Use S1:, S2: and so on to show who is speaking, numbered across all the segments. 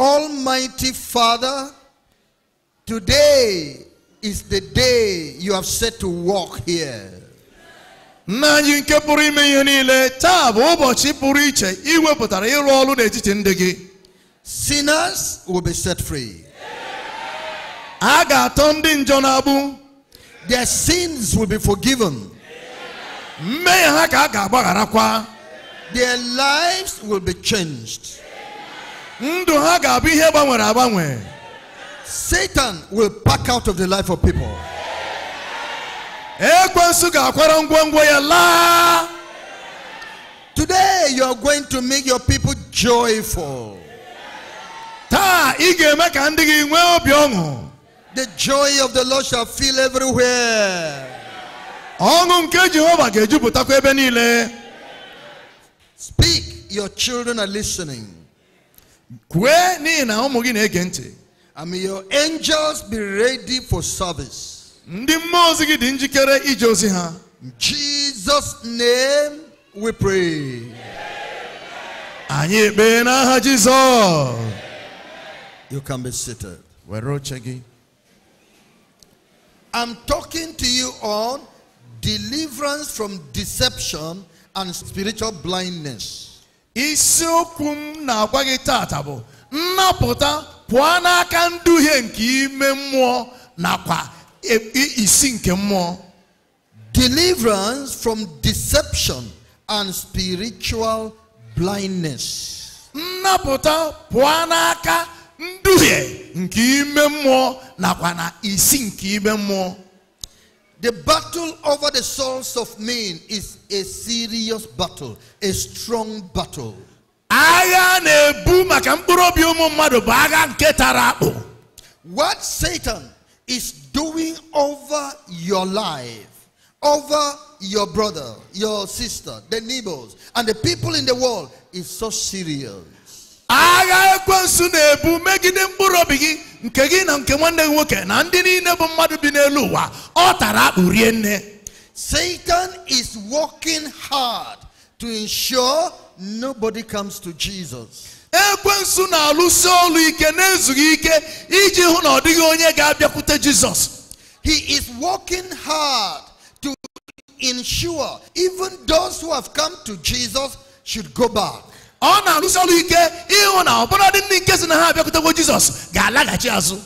S1: Almighty Father, today is the day you have set to walk here. sinners will be set free Aga, ga-atọ their sins will be forgiven their lives will be changed ndụ ha ga-abụ ihe gbanwere agbanwe satan will pack out of the life of people ekwensu eh, ga-akwara ngwongwo ya laa today you are going to make your people joyful taa ị ga-eme ka ndị gị nwee obi ọṅụ the joy of the lord shall fill everywhere ọṅụ nke jehova ga-ejupụtakwa ebe niile speak your children are listening I may your angels be ready for service. Ndị mmụọ ozi gị dị njikere ije ozi In Jesus' name we pray. Anyị ekpee You can be seated. i I'm talking to you on deliverance from deception and spiritual blindness. isiokwu m na-agwa gị taata bụ nnapụta pụọ n'aka nduhie nke ime mmụọ nakwa e, isi nke mmụọ deliverance from deception and spiritual blindness nnapụta pụọ n'aka nduhie nke ime mmụọ nakwa na isi nke ime mmụọ The battle over the souls of men is a serious battle, a strong battle. Agha na-ebu maka mkpụrụ obi ụmụ mmadụ bụ agha nke tara akpụ. What Satan is doing over your life, over your brother, your sister, the neighbors, and the people in the world is so serious agha ekwensu na-ebu megide mkpụrụ obi gị nke gị na nke nwanne gị nwoke na ndị niile bụ mmadụ bi n'elu ụwa ọ tara nne Satan is working hard to ensure nobody comes to Jesus. ekwensu na-alụsi ike ike iji hụ na ọ dịghị onye ga-abịakwute Jizọs he is working hard to ensure even those who have come to Jesus should go back ọ na-arụsi ọrụ ike ịhụ na ọbụla dị ndị nke si na ha jizos Jizọs ga-alaghachi azụ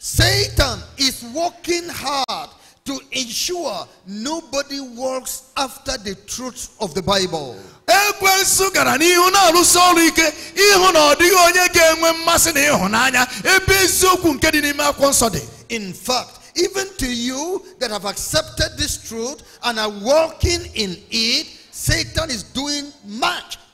S1: Satan is working hard to ensure nobody walks after the truth of the Bible. Ekwensu gara n'ihu na-arụsi ọrụ ike ịhụ na ọ dịghị onye ga-enwe mmasị na ịhụnanya ebe eziokwu nke dị n'ime akwụkwọ nsọ dị. In fact, even to you that have accepted this truth and are walking in it, Satan is doing much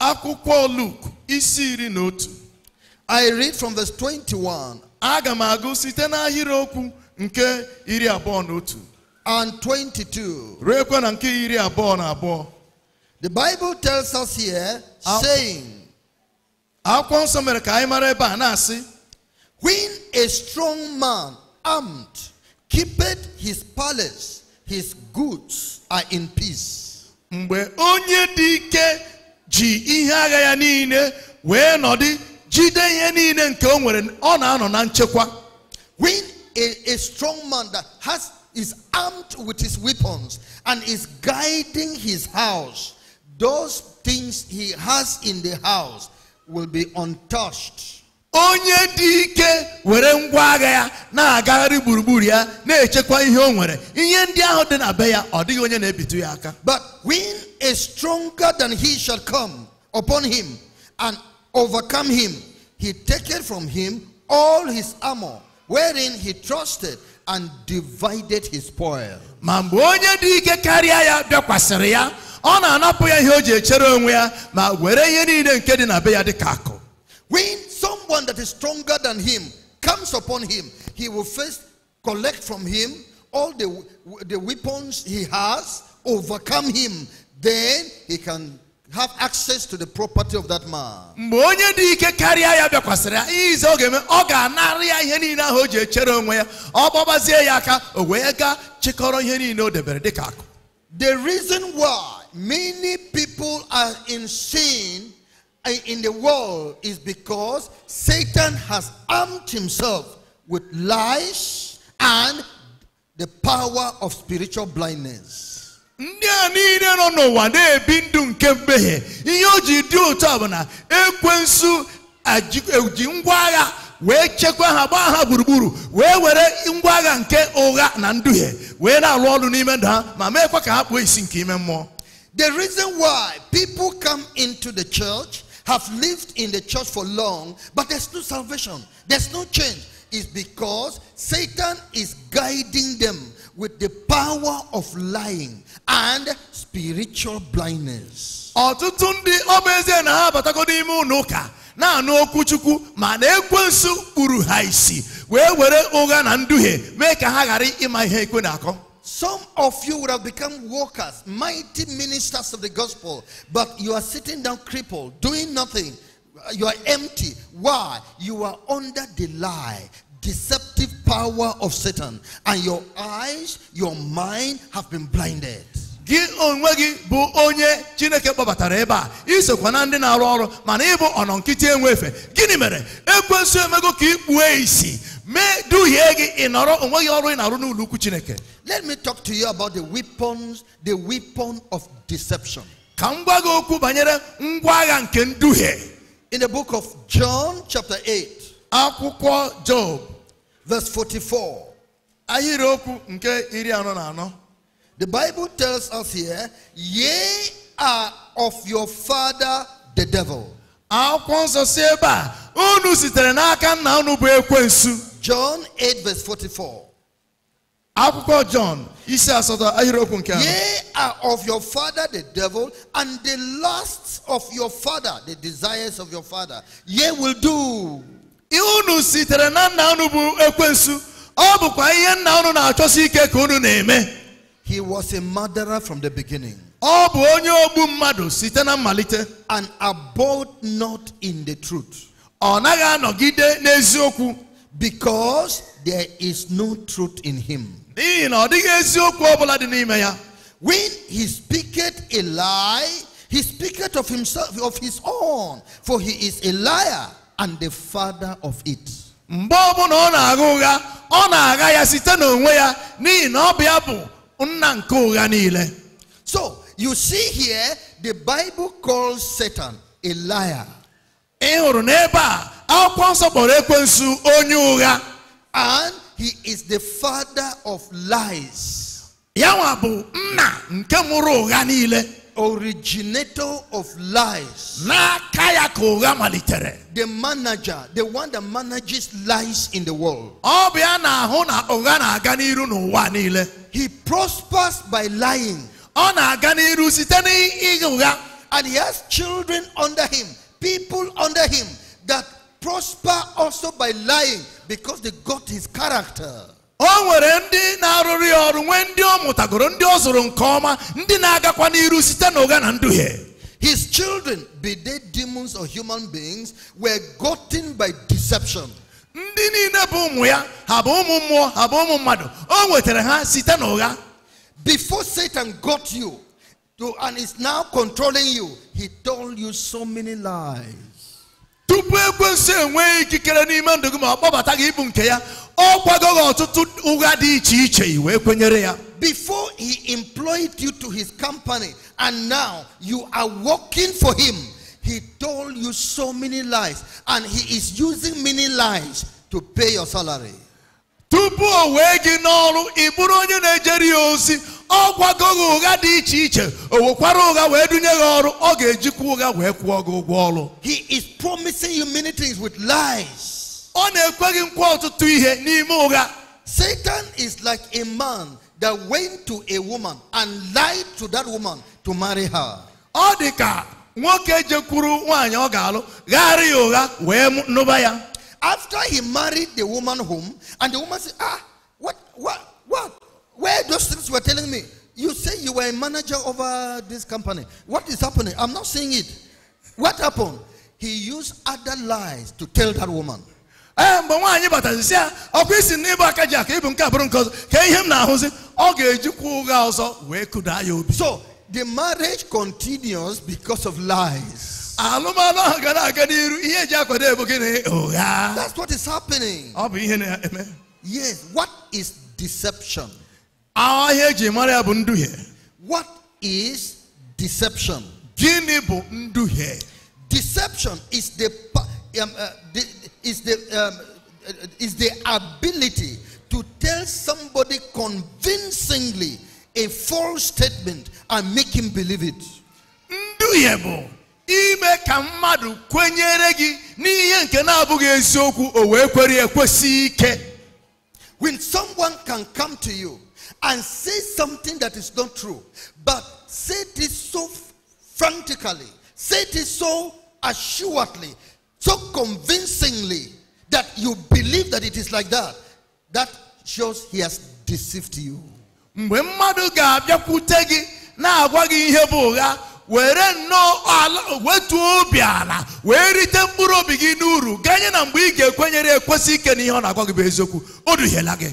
S1: akwụkwọ Luke isi iri na otu I read from verse 21 aga m agụ site n'ahịrịokwu nke iri abụọ na otu and 22 ruekwa na nke iri abụọ na abụọ the Bible tells us here saying akwụkwọ nsọ mere ka anyị mara ebe a na-asị when a strong man armed keepeth his palace his goods are in peace mgbe onye dị ike ji ihe agha ya niile wee nọdị jide ihe niile nke o nwere ọ na-anọ na nchekwa when a, a strong man that has is armed with his weapons and is guiding his house those things he has in the house will be untouched onye dị ike were ngwa agha ya na-agagharị gburugburu ya na-echekwa ihe o nwere ihe ndị ahụ dị na be ya ọ dịghị onye na-ebitu ya aka but when a stronger than he shall come upon him and overcome him he taketh from him all his armor wherein he trusted and divided his spoil ma mgbe onye dị ike karịa ya bịakwasịrị ya ọ na-anapụ ya ihe o ji echere onwe ya ma were ihe niile nke dị na be ya ka akụ when someone that is stronger than him comes upon him, he will first collect from him all the, the weapons he has, overcome him. Then he can have access to the property of that man. The reason why many people are in sin in the world is because Satan has armed himself with lies and the power of spiritual blindness. ndị a niile nọ n'ụwa na-ebi ndụ nke mmehie ihe o ji dị otu a bụ na ekwensu eji ngwa agha wee chekwa ha gbaa ha gburugburu wee were ngwa agha nke ụgha na nduhie wee na-alụ ọrụ n'ime ndụ ha ma meekwa ka ha kpuo isi nke ime mmụọ The reason why people come into the church have lived in the church for long, but there's no salvation, there's no change, is because Satan is guiding them with the power of lying and spiritual blindness. ọtụtụ ndị ọ na ha abatago n'ime ụlọ ụka na-anụ okwu chukwu ma na ekwensu kpuru ha isi wee were ụgha na nduhie mee ka ha ghara ịma ihe ekwe na-akọ some of you would have become workers, mighty ministers of the gospel, but you are sitting down crippled, doing nothing. You are empty. Why? You are under the lie, deceptive power of Satan, and your eyes, your mind have been blinded. gị onwe gị bụ onye chineke kpọbatara ebe a isokwa na ndị na-arụ ọrụ mana ịbụ enwe efe gịnị mere ekwensu emego ka isi mee duhie gị onwe gị ọrụ ị na-arụ n'ụlọ ukwu chineke let me talk to you about the weapons, the weapon of deception. In the book of John, chapter 8, Job, verse 44. The Bible tells us here, ye are of your father the devil. john 8 verse 44 akwụkwọ John isi asatọ ahịrịokwu nke ahụ. Ye are of your father the devil and the lusts of your father the desires of your father ye will do. Unu sitere na nna unu bụ ekwensu ọ bụkwa ihe nna unu na-achọsi ike ka unu na-eme. He was a murderer from the beginning. Ọ bụ onye ogbu mmadụ site na mmalite. And abode not in the truth. Ọ naghị anọgide n'eziokwu. Because there is no truth in him when he speaketh a lie he speaketh of himself of his own for he is a liar and the father of it so you see here the bible calls satan a liar and he is the father of lies. Originator of lies. The manager, the one that manages lies in the world. He prospers by lying. And he has children under him, people under him that prosper also by lying because they got his character. o nwere ndị ọrụ nwee ndị ọ mụtagoro ndị ọ zụrụ nke ọma ndị na-agakwa n'iru site na nduhie his children be they demons or human beings were gotten by deception ndị niile bụ ụmụ ya ha bụ ụmụ mmụọ ha bụ ụmụ mmadụ o nwetara ha site before satan got you and is now controlling you he told you so many lies tupu ekwensu enwee ikikere n'ime ndụ gị ma ọ kpọbata gị ịbụ nke ya ọ kwagoghị ọtụtụ ụgha dị iche iche kwenyere ya before he employed you to his company and now you are working for him he told you so many lies and he is using many lies to pay your salary tupu o wee gị n'ọrụ ị bụrụ onye na-ejere ya ozi ọ gwago ụgha dị iche iche o wekwara ụgha wee dunye gị ọrụ ọ ga-ejikwa ụgha wee kwụọ gị ụgwọ ọrụ he is promising you many things with lies ọ na-ekwe gị nkwa ọtụtụ ihe n'ime ụgha satan is like a man that went to a woman and lied to that woman to marry her ọ dị ka nwoke jekwuru nwaanyị ọ ga-alụ gharị ya ụgha wee nụba ya after he married the woman home and the woman said ah what what what Where those things were telling me, you say you were a manager over this company. What is happening? I'm not seeing it. What happened? He used other lies to tell that woman. Eh, so the marriage continues because of lies oh, that's what is happening yes what is deception what is deception? Deception um, uh, is the um, uh, is the um, is the ability to tell somebody convincingly a false statement and make him believe it. ime ka mmadụ kwenyere gị n'ihe nke na-abụghị eziokwu o wee kwere ekwesị ike. When someone can come to you and say something that is not true, but say this so frantically, say this so assuredly, so convincingly that you believe that it is like that, that shows he has deceived you. mgbe mmadụ gị na-agwa gị ihe bụ ụgha were nnọọ ala obi ala wee rite mkpụrụ obi gị n'uru ganye na mgbe ị ga-ekwenyere ekwesị ike ọ na-agwa gị bụ eziokwu o duhiela gị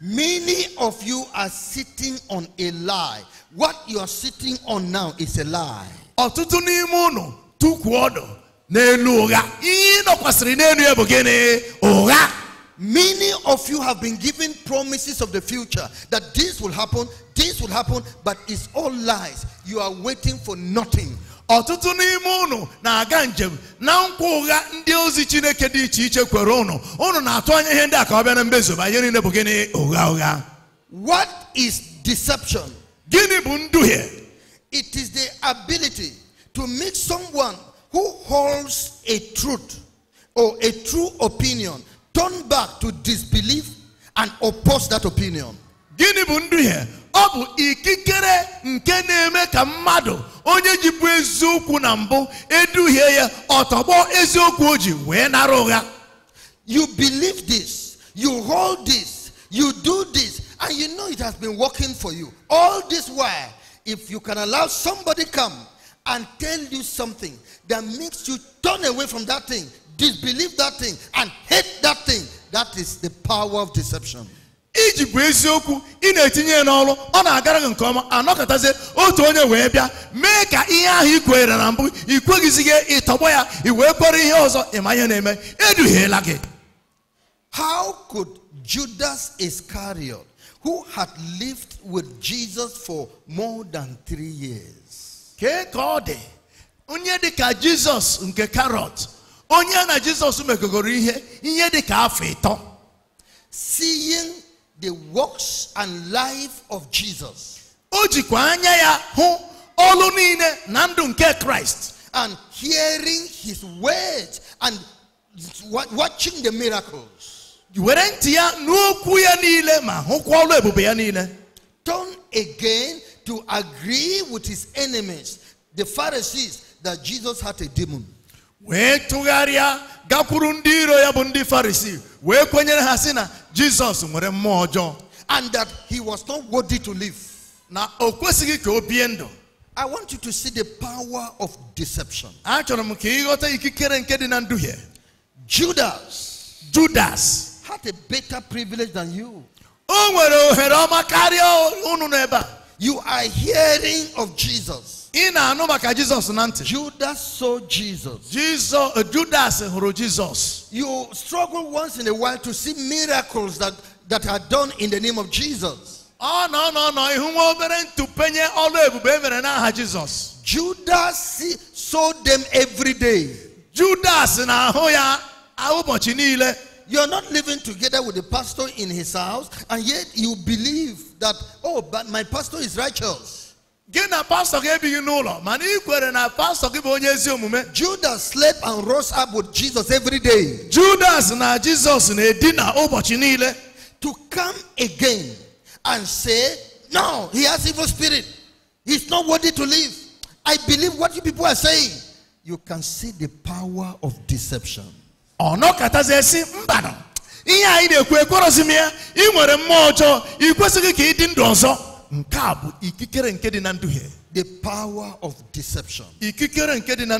S1: Many of you are sitting on a lie. What you are sitting on now is a lie. Ọtụtụ n'ime unu ọdụ n'elu ụgha. Ihe n'elu ya bụ gịnị? Ụgha. Many of you have been given promises of the future that this will happen, this will happen, but it's all lies. You are waiting for nothing. ọtụtụ n'ime ụnụ na-aga njem na nkwa ụgha ndị ozi chineke dị iche iche kwere ụnụ. Ụnụ na-atụ anya ihe ndị a ka ọ bịa na mmezuba ihe niile bụ gịnị ụgha ụgha what is deception gịnị bụ nduhie it is the ability to make someone who holds a truth or a true opinion turn back to disbelief and oppose that opinion gịnị bụ nduhie ọ bụ ikikere nke na-eme ka mmadụ onye eziokwu na mbụ eduhie ya ọtọgbọ eziokwu o ji wee nara ụgha you believe this you hold this you do this and you know it has been working for you all this while if you can allow somebody come and tell you something that makes you turn away from that thing disbelieve that thing and hate that thing that is the power of deception iji bụ eziokwu ị na-etinye ya n'ọrụ ọ na-agara gị nke ọma anọkọtazie otu onye wee bịa mee ka ihe ahụ i kwenyere na mbụ ị kweghịzighị ịtọgbọ ya ị wee kwere ihe ọzọ ịma ihe na-eme eduhiela gị how could Judas Iscariot who had lived with Jesus for more than three years. Kee ka ọ dị onye dị ka Jizọs nke karọt onye na Jizọs megogoro ihe ihe dị ka afọ ịtọ. Seeing the works and life of Jesus. O jikwa anya ya hụ ọlụ niile na ndụ nke Christ. And hearing his words and watching the miracles. Were ntị ya n'okwu ya niile ma hụkwa ọlụ ebube ya niile. Turn again to agree with his enemies, the Pharisees, that Jesus had a demon wee tụgharịa gakwuru ndị iro ya bụ ndị farisi wee kwenyere ha sị na jizọs nwere mmụọ ọjọọ and that he was not worthy to live na o kwesịghị ka o bie ndụ I want you to see the power of deception. Achọrọ m ka ịghọta ikikere nke dị Judas. Judas. Had a better privilege than you. You are hearing of Jesus in our number Jesus jizos Judas saw Jesus Jesus, uh, Judas hụrụ uh, Jesus. you struggle once in a while to see miracles that that are done in the name of Jesus Oh nọ nọ nọ ihu nwa obere ntụpenye ọlụ ebube e mere n'aha Jesus. Judas saw them every day Judas na hoya ya ụbọchị niile You're not living together with the pastor in his house, and yet you believe that, oh, but my pastor is righteous gị na pastọ gị ebighị n'ụlọ mana ị kwere na pastọ gị bụ onye ezi omume judas slept and rose up with jesus every day judas na jesus na-edina ụbọchị niile to come again and say no he has evil spirit he's not worthy to live i believe what you people are saying you can see the power of deception ọ nọkọtazi esi mbanụ ihe anyị na-ekwu ekwerọzi m ya ị nwere mmụọ ọjọọ ị kwesịghị ka ị dị ndụ ọzọ nke a bụ ikikere nke dị na the power of deception ikikere nke dị na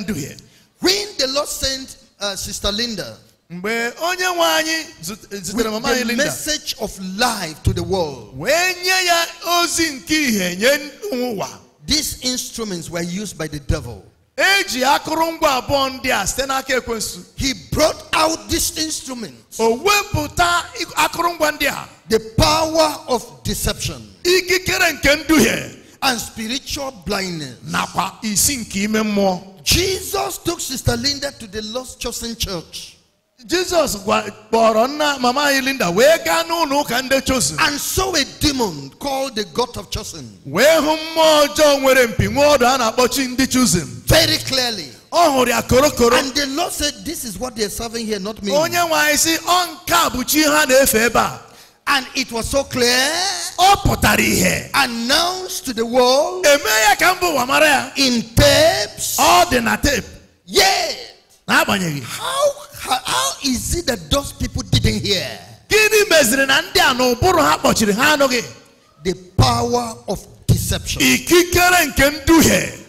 S1: when the lord sent uh, sister linda mgbe onye nwe anyị eh, mama anyị linda message of life to the world wee nye ya ozi nke ihe nye ụwa these instruments were used by the devil eji akụrụngwa abụọ ndị a site n'aka ekwensu he brought out these instruments o wepụta akụrụngwa ndị a the power of deception. Ikikere nke nduhie. And spiritual blindness. Nakwa isi nke Jesus took Sister Linda to the Lost Chosen Church. Jesus kpọrọ nna mama Linda wega gaa n'ụlọ kande ndị Chosen. And saw a demon called the God of Chosen. Wee hụ mmụọ ọjọọ nwere mpi nwa ọdụ a na-akpọ chi ndị Chosen. Very clearly. Ọ hụrụ ya korokoro. And the Lord said this is what they are serving here not me. Onye nwe anyị sị ọ nke a and it was so clear. All pụtara Announced to the world. In tapes. All the na tape. How how is it that those people didn't hear? The power of deception.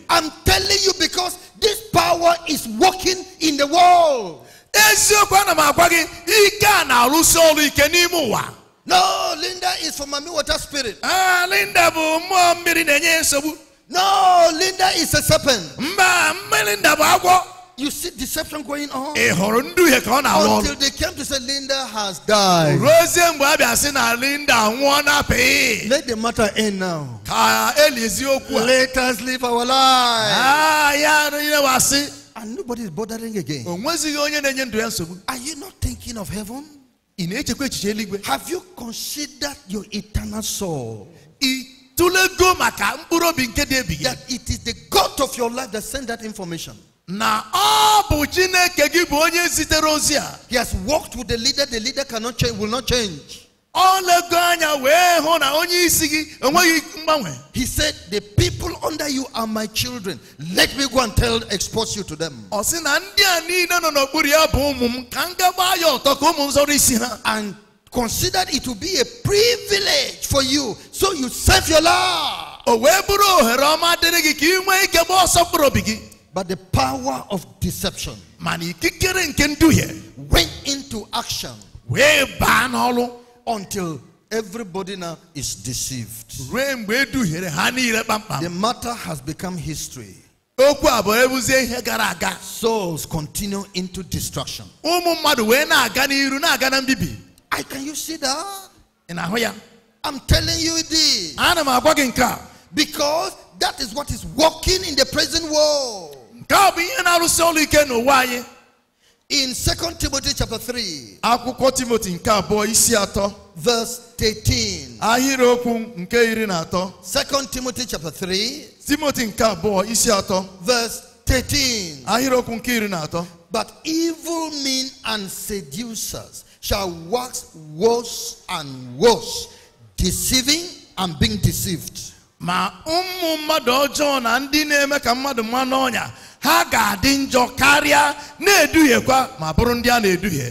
S1: I'm telling you because this power is working in the world. No, Linda is from Mami water spirit. Ah, Linda bụ mmụọ mmiri na-enye nsogbu. No, Linda is a serpent. Mba, Linda bụ agwọ. You see deception going on. Ị hụrụ nduhie ka ọ na-alụ ọrụ. Until they came to say Linda has died. Ruozie mgbe a bịa sị na Linda nwụọ n'apịị. Let the matter end now. Ka elizi okwu a. Let us live our lives. Ah, ya nile wasị. And nobody is bordering again. O nwezighị onye na-enye ndụ ya nsogbu. Are you not thinking of heaven? Have you considered your eternal soul? That it is the God of your life that sent that information. na ọ bụ chineke gị bụ onye zitere ozi a. he has worked with the leader the leader cannot change will not change. He said, The people under you are my children. Let me go and tell, expose you to them. And considered it to be a privilege for you. So you serve your Lord. But the power of deception went into action until everybody now is deceived. The matter has become history. Souls continue into destruction. I can you see that? I'm telling you this. Because that is what is working in the present world. In 2 Timothy chapter 3. Akwụkwọ Timothy nke abụọ isi atọ. Verse 18. Ahịrịokwu nke iri na atọ. 2 Timothy chapter 3. Timothy nke abụọ isi atọ. Verse 13. Ahịrịokwu nke iri na atọ. But evil men and seducers shall wax worse and worse, deceiving and being deceived. Ma ụmụ mmadụ ọjọọ na ndị na-eme ka mmadụ mmanụ ọnya ha ga-adị njọ karịa na-eduhiekwa ma bụrụ ndị a na-eduhie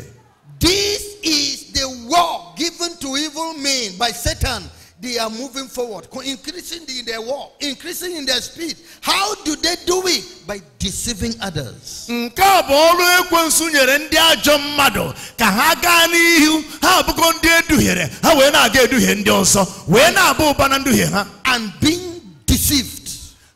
S1: this is the war given to evil men by satan they are moving forward increasing in their war increasing in their speed how do they do it by deceiving others nke a bụ ọrụ ekwensu nyere ndị ajọ mmadụ ka ha gaa n'ihu ha abụgo ndị eduhiere ha wee na-aga eduhie ndị ọzọ wee na-aba ụba na nduhie ha and being deceived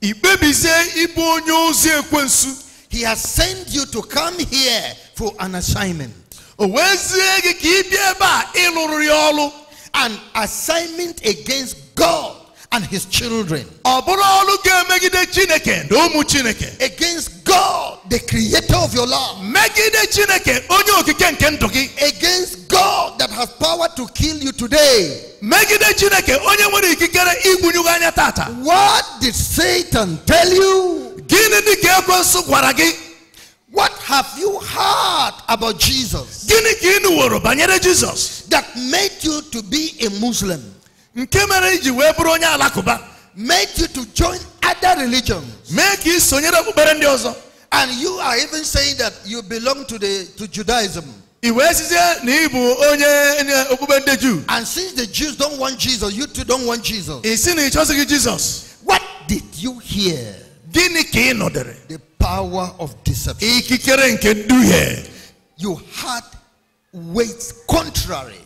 S1: He has sent you to come here for an assignment. An assignment against God and his children. Against God, the creator of your life. Against God that has power to kill you today. What did Satan tell you? What have you heard about Jesus? That made you to be a Muslim nke mere iji wee bụrụ onye alakụba made you to join other religions mee ka ị sonyere okpukpere ndị ọzọ and you are even saying that you belong to the to Judaism i wee sizie na ị bụ onye okpukpe ndị and since the Jews don't want Jesus you too don't want Jesus ị sị na ị Jesus what did you hear gịnị ka ị the power of deception ikikere nke nduhie you had weights contrary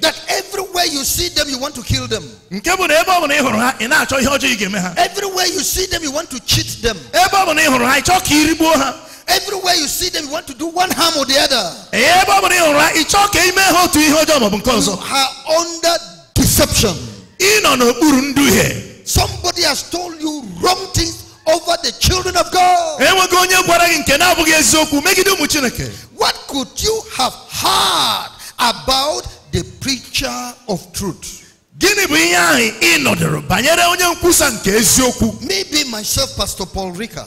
S1: that everywhere you see them you want to kill them everywhere you see them you want to cheat them everywhere you see them you want to do one harm or the other you are under deception somebody has told you wrong things over the children of God why could you have heard about the preacher of truth? Maybe myself, Pastor Paul Rika.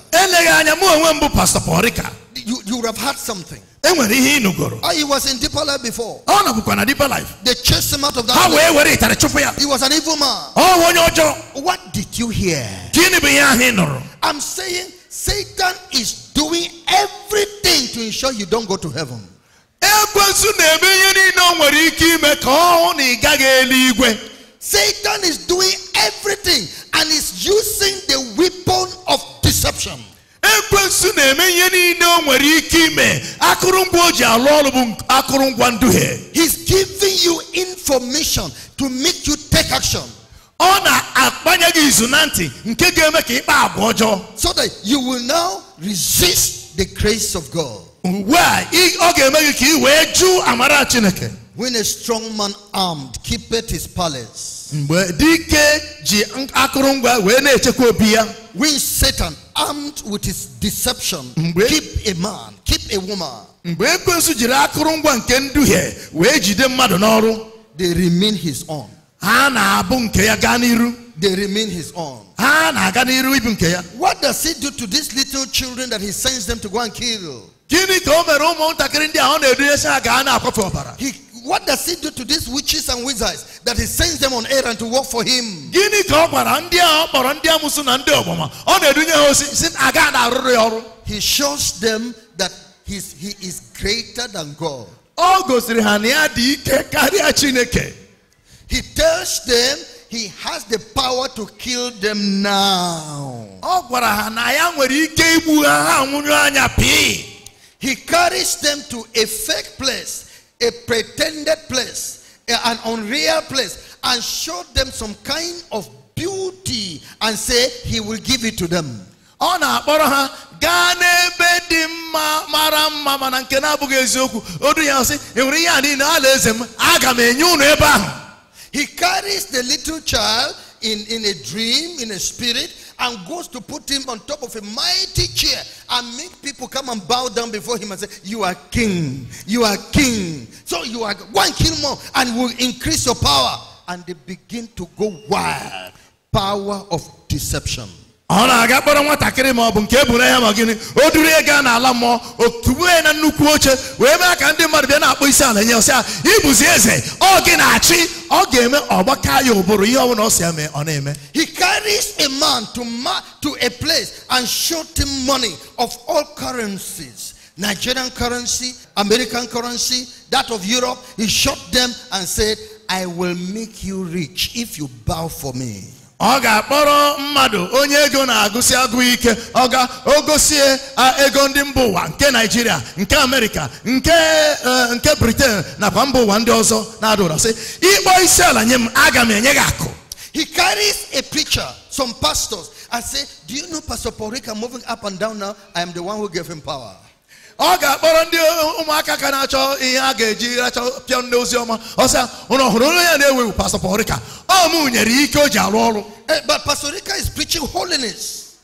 S1: You, you would have heard something. Oh, he was in deeper life before they chased him out of that he was an evil man what did you hear nụrụ I'm saying Satan is doing everything to ensure you don't go to heaven. Satan is doing everything and is using the weapon of deception. he's giving you information to make you take action so that you will now resist the grace of God mgbe a ọ ga-eme amara chineke when a strong man armed keepeth his palace dike akụrụngwa when Satan armed with his deception keep a man keep a woman mgbe ekwensu jiri akụrụngwa nke nduhie wee jide they remain his own ha na-abụ ya they remain his own. What does he do to these little children that he sends them to go and kill? He, what does he do to these witches and wizards that he sends them on errand to work for him? He shows them that he is greater than God. He tells them he has the power to kill them now. He carries them to a fake place, a pretended place, an unreal place, and showed them some kind of beauty and say he will give it to them. He carries the little child in, in a dream, in a spirit, and goes to put him on top of a mighty chair and make people come and bow down before him and say, You are king, you are king. So you are one king more and will increase your power. And they begin to go wild. Power of deception na-aga kpọrọ nwatakịrị ma ọ bụ nke ma gịnị o duru ya gaa n'ala mmụọ ya na nnukwu oche wee mee ka ndị mmadụ bịa na-akpọ isi ala nye ọsịa ah, ịbụzi eze ọ gị na-achị ọ ga-eme ọgbaka ya ụbụrụ ihe ọbụla ọ si eme ọ na-eme he carries a man to, ma to a place and showed him money of all currencies Nigerian currency American currency that of Europe he showed them and said I will make you rich if you bow for me Oga ga ga-akpọrọ mmadụ onye ego na-agụsị agụ ike ọ a ogosie ego ndị mba nke naijiria nke amerịka nke eh, nke briten nakwa mba ụwa ndị ọzọ na-adụra se ịkpọ isi ala nye m aga m enye he carries a picture some pastors and say do you know pastor porika moving up and down now i am the one who gave him power ọ ga-akpọrọ ndị ụmụaka ka na-achọ ihe a ga-eji racha pịọ ndị ozi ọma ọsịa ụnụ ọhụrụ onye ya na ewewu Pastor Porika ọ mụ nyere ike o ji arụ ọrụ eh, but Pastor is preaching holiness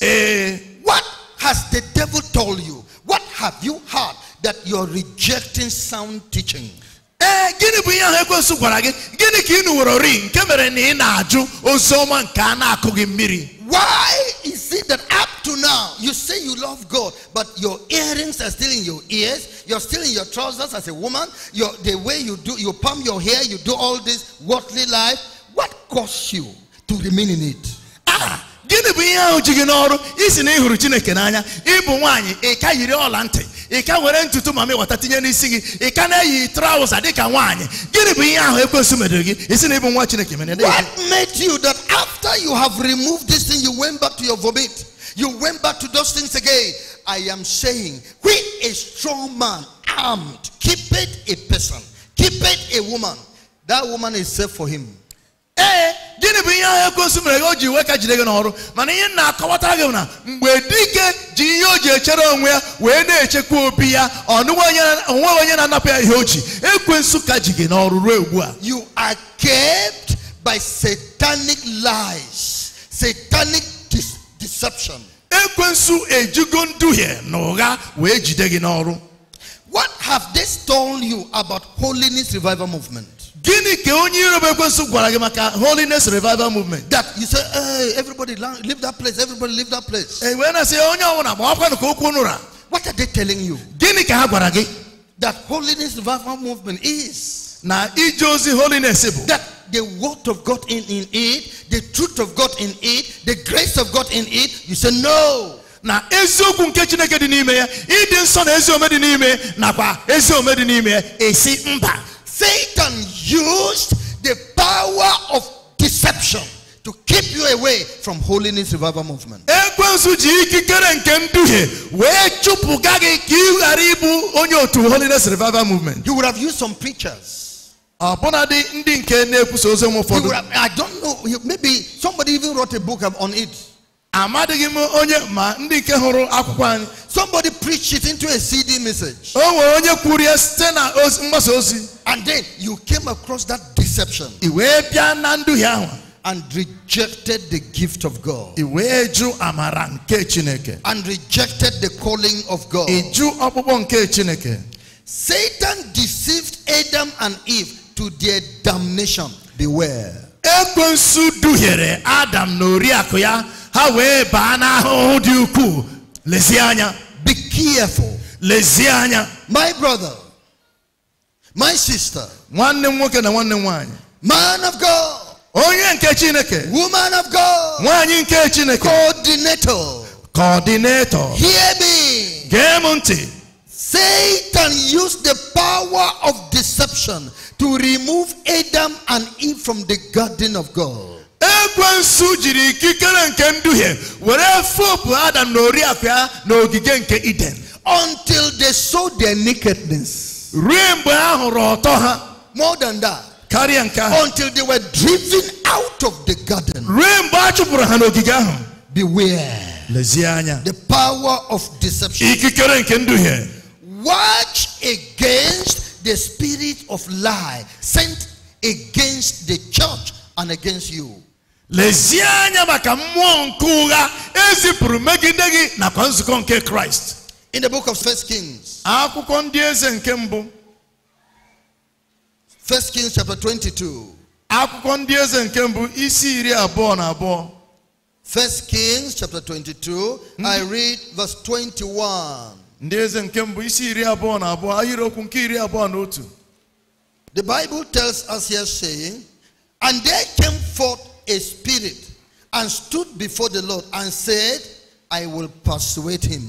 S1: Eh. what has the devil told you? What have you heard that you're rejecting sound teaching? Eh, gịnị bụ gịnị na-ajụ why is it that up to now you say you love God, but your earrings are still in your ears, you're still in your trousers as a woman, your, the way you do, you palm your hair, you do all this worldly life? What caused you to remain in it? Ah! gịnị bụ ihe ahụ ji gị n'ọrụ isi na ịhụrụ chineke n'anya ịbụ nwaanyị ịka yiri ọla ntị ịka were ntutu ma mịwata tinye n'isi gị ịka na-eyi traụza dịka nwaanyị gịnị bụ ihe ahụ ekwensu medoro gị isi na ịbụ nwa chineke mere What made you that after you have removed this thing you went back to your vomit you went back to those things again I am saying we a strong man armed keep it a person keep it a woman that woman is safe for him ee eh, gịnị bụ ihe ahụ ekwensu mere o ji weka jide gị n'ọrụ mana ihe na-akọwata gị na mgbe dike ji ihe o ji echere onwe ya wee na-echekwa obi ya onwe onye na-anapụ ya ihe o ji ekwensu ka ji gị n'ọrụ ruo ugbu a you are kept by satanic lies satanic deception ekwensu ejigo nduhie na ụgha wee jide gị n'ọrụ what have they told you about holiness revival movement Gini ke onye iro bụ ekwensu gwara gị maka holiness revival movement. That you say, hey, everybody leave that place, everybody leave that place. E wee na-asị onye ọbụla ma ọkwa ka okwu nụra. What are they telling you? Gini ka ha gwara gị? That holiness revival movement is. Na ije ozi holiness bụ. That the word of God in, in it, the truth of God in it, the grace of God in it, you say no. na eziokwu nke chineke dị n'ime ya ịdị nsọ na ezi ome dị n'ime nakwa ezi ome dị n'ime ya esi mba Satan used the power of deception to keep you away from holiness revival movement. holiness revival movement. You would have used some preachers. I don't know maybe somebody even wrote a book on it amadịghị m onye ma ndị nke hụrụ akwụkwọ anyị somebody preached it into a CD message o nwere onye kwuru ya site na mgbasa ozi and then you came across that deception i wee bịa na nduhie ahụ and rejected the gift of God. And rejected the calling of God. Satan deceived Adam and Eve to their damnation. They were ha wee baa n'ahụhụ dị ukwuu be careful lezie my brother my sister nwanne m nwoke na nwanne m nwaanyị man of god onye nke chineke woman of god nwaanyị nke coordinator coordinator hear
S2: me
S1: gee Satan used the power of deception to remove Adam and Eve from the garden of God ekwensu jiri ikikere nke nduhie were fopụ adam na oriakụ ya n'ogige nke eden until they saw their nakedness ruo mgbe ha hụrụ ọtọ ha more than that karịa nke ahụ until they were driven out of the garden ruo mgbe a chụpụrụ ha n'ogige ahụ beware lezie anya the power of deception ikikere nke nduhie watch against the spirit of lie sent against the church and against you lezie anya maka mmụọ nke ụgha ezipụrụ megide gị nakwa nzukọ nke kraịst in the book of first kings akwụkwọ ndị eze nke mbụ first kings chapter 22 akwụkwọ ndị eze nke mbụ isi iri abụọ na abụọ first kings chapter 22 i hmm? read verse 21 ndị eze nke mbụ isi iri abụọ na abụọ okwu nke iri abụọ na otu the bible tells us here saying and they came forth a spirit and stood before the Lord and said, I will persuade him.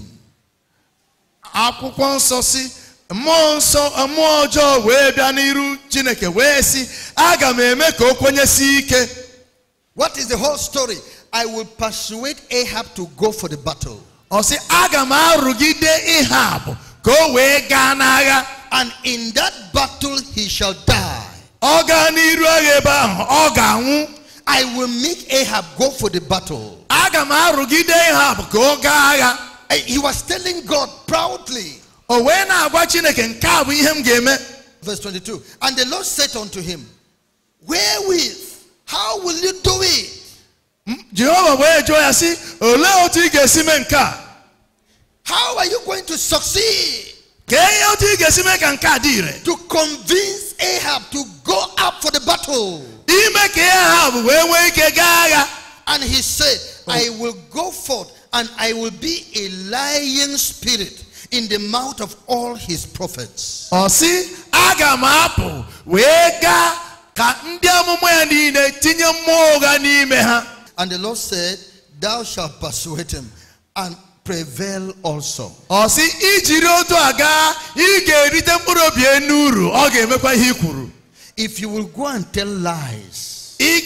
S1: akwụkwọ nsọ si mmụọ nsọ mmụọ ọjọọ wee bịa n'iru chineke wee sị aga m eme ka o kwenyesi ike what is the whole story i will persuade ahab to go for the battle ọ sị aga m arụgide ahab ka o wee gaa n'agha and in that battle he shall die ọ gaa n'iru agha ebe ahụ ọ ga-anwụ I will make Ahab go for the battle. he was telling God proudly. Verse 22. And the Lord said unto him, Wherewith? How will you do it? How are you going to succeed? To convince Ahab to go up for the battle and he said oh. i will go forth and i will be a lying spirit in the mouth of all his prophets ọ sị aga m apụ wee gaa ka ndị amụma and the lord said thou shalt persuade him and prevail also. Ọ sị ijiri to Aga, gaa ị ga-erite mkpụrụ obi if you will go and tell lies, it's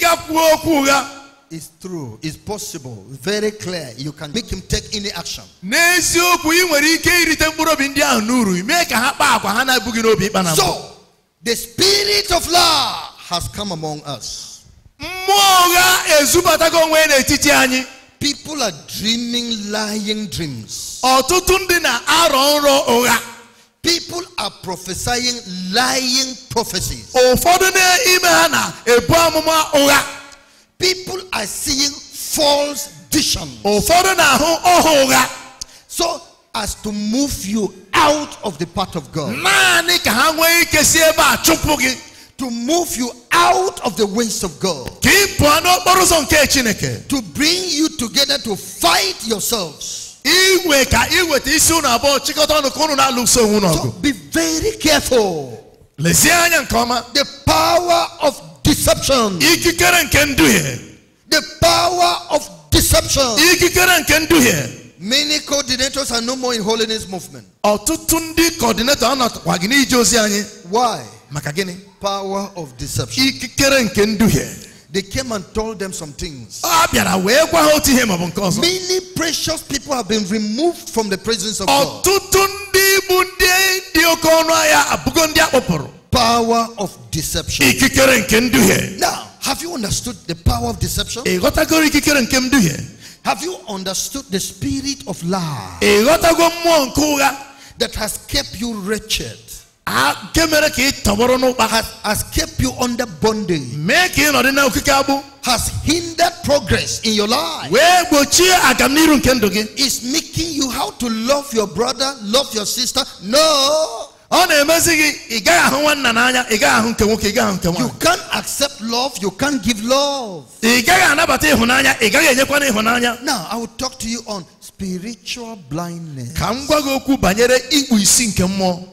S1: true, it's possible, very clear. You can make him take any action. So, the spirit of law has come among us. People are dreaming lying dreams. People are prophesying lying prophecies. People are seeing false visions. So as to move you out of the path of God. To move you out of the ways of God. To bring you together to fight yourselves. Iwe So be very careful. The power of deception. The power of deception. Many coordinators are no more in holiness movement. coordinator Why? Maka Power of deception. can do here they came and told them some things. Ah, Many precious people have been removed from the presence of God. Power of deception. Now, have you understood the power of deception? Have you understood the spirit of lie that has kept you wretched? nke mere ka ị tọgbọrọ n'ụkpa has kept you under bondage mee ka ị nọdị na okike agbụ has hindered progress in your life wee gbochie agamniru nke ndụ gị is making you how to love your brother love your sister no ọ na-emezi gị ị gaghị ahụ nwanna n'anya ị gaghị ahụ nke nwoke ị gaghị ahụ nke nwaanyị you can't accept love you can't give love ị gaghị anabata ịhụnanya ị gaghị enyekwana ịhụnanya now i will talk to you on spiritual blindness ka m gwa gị okwu banyere ikpu isi nke mmụọ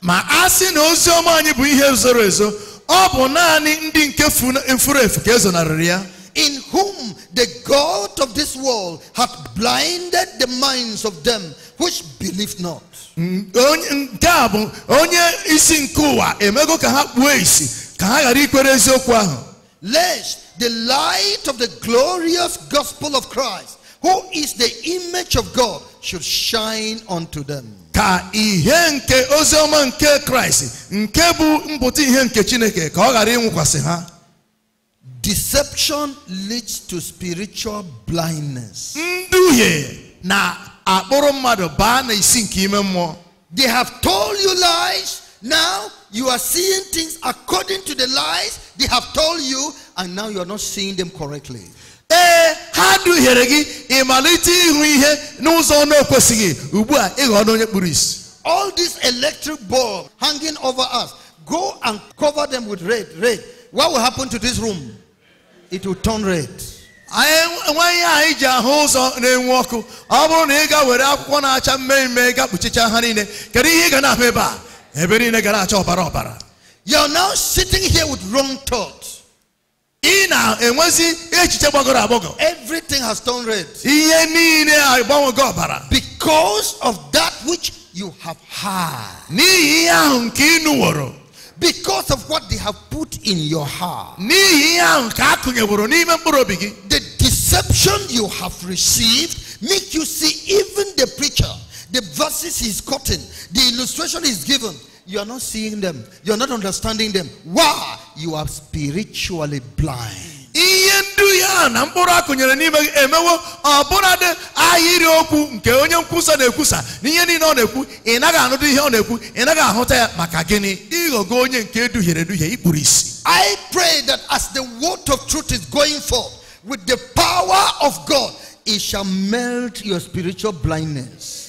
S1: ma na ozi ọma anyị bụ ihe zoro ezo ọ bụ naanị ndị nke furu efu ka ezonarịrị ya in whom the God of this world hath blinded the minds of them which believe not. Mm, nke a bụ onye isi nke ụwa emego ka ha kpuo isi ka ha ghara ikwere eziokwu ahụ. lest the light of the glorious gospel of Christ who is the image of God should shine unto them. ka ihe nke oziọma nke nke bụ ihe nke chineke ka ọ ghara ịnwụkwasị ha deception leads to spiritual blindness nduhie na-akpụrụ mmadụ baa na isi nke ime mmụọ they have told you lies now you are seeing things according to the lies they have told you and now you are not seeing them correctly ee ha duhiere gị ịmalite ịhụ ihe n'ụzọ na-ekwesịghị ugbu a ịghọ onye kpuru isi all this electric bulb hanging over us go and cover them with red red what will happen to this room it will turn red enweghị anyị ji ahụ ụzọ na-enwu ọkụ ọ bụrụ na ị ga were akwụkwọ na-acha mmemme ga kpuchicha ha niile kedu ihe ị ga na-ahụ ebe a ebe niile gara acha ọbara ọbara you are now sitting here with wrong thoughts Everything has turned red. Because of that which you have had. Because of what they have put in your heart. The deception you have received make you see even the preacher, the verses he's quoting, the illustration is given, you are not seeing them. You are not understanding them. Why? You are spiritually blind. I pray that as the word of truth is going forth with the power of God, it shall melt your spiritual blindness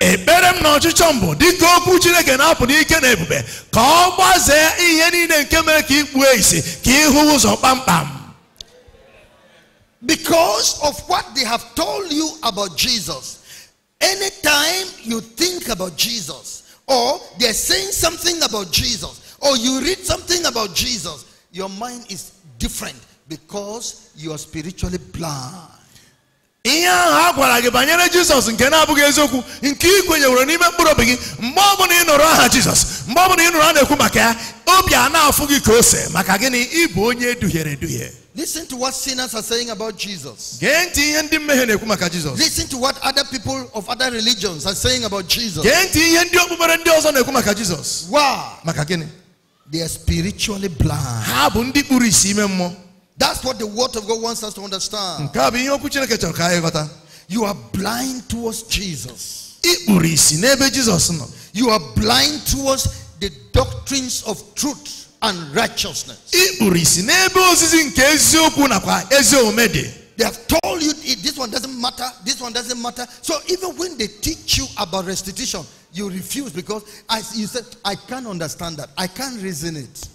S1: ekpere m na ọchịchọ mbụ dịka okwu chineke na-apụ n'ike na ebube ka ọ gbazee ihe niile nke mere ka ikpuo ka ịhụ ụzọ kpamkpam because of what they have told you about jesus anytime you think about jesus or they're saying something about jesus or you read something about jesus your mind is different because you are spiritually blind ihe ahụ a gwara gị banyere jizọs nke na-abụghị eziokwu nke ị kwenyewere n'ime mkpụrụ obi gị mgbe ọbụla ị nụrụ aha jizọs mgbe ọbụla ị nụrụ a na-ekwu maka ya obi a na-afụ gị ka ose maka gịnị ịbụ onye duhiere eduhie Listen to what sinners are saying about Jesus. Listen to what other people of other religions are saying about Jesus. Wow. They are spiritually blind. That's what the word of God wants us to understand. You are blind towards Jesus. You are blind towards the doctrines of truth and righteousness. They have told you this one doesn't matter, this one doesn't matter. So even when they teach you about restitution, you refuse because I, you said, I can't understand that. I can't reason it.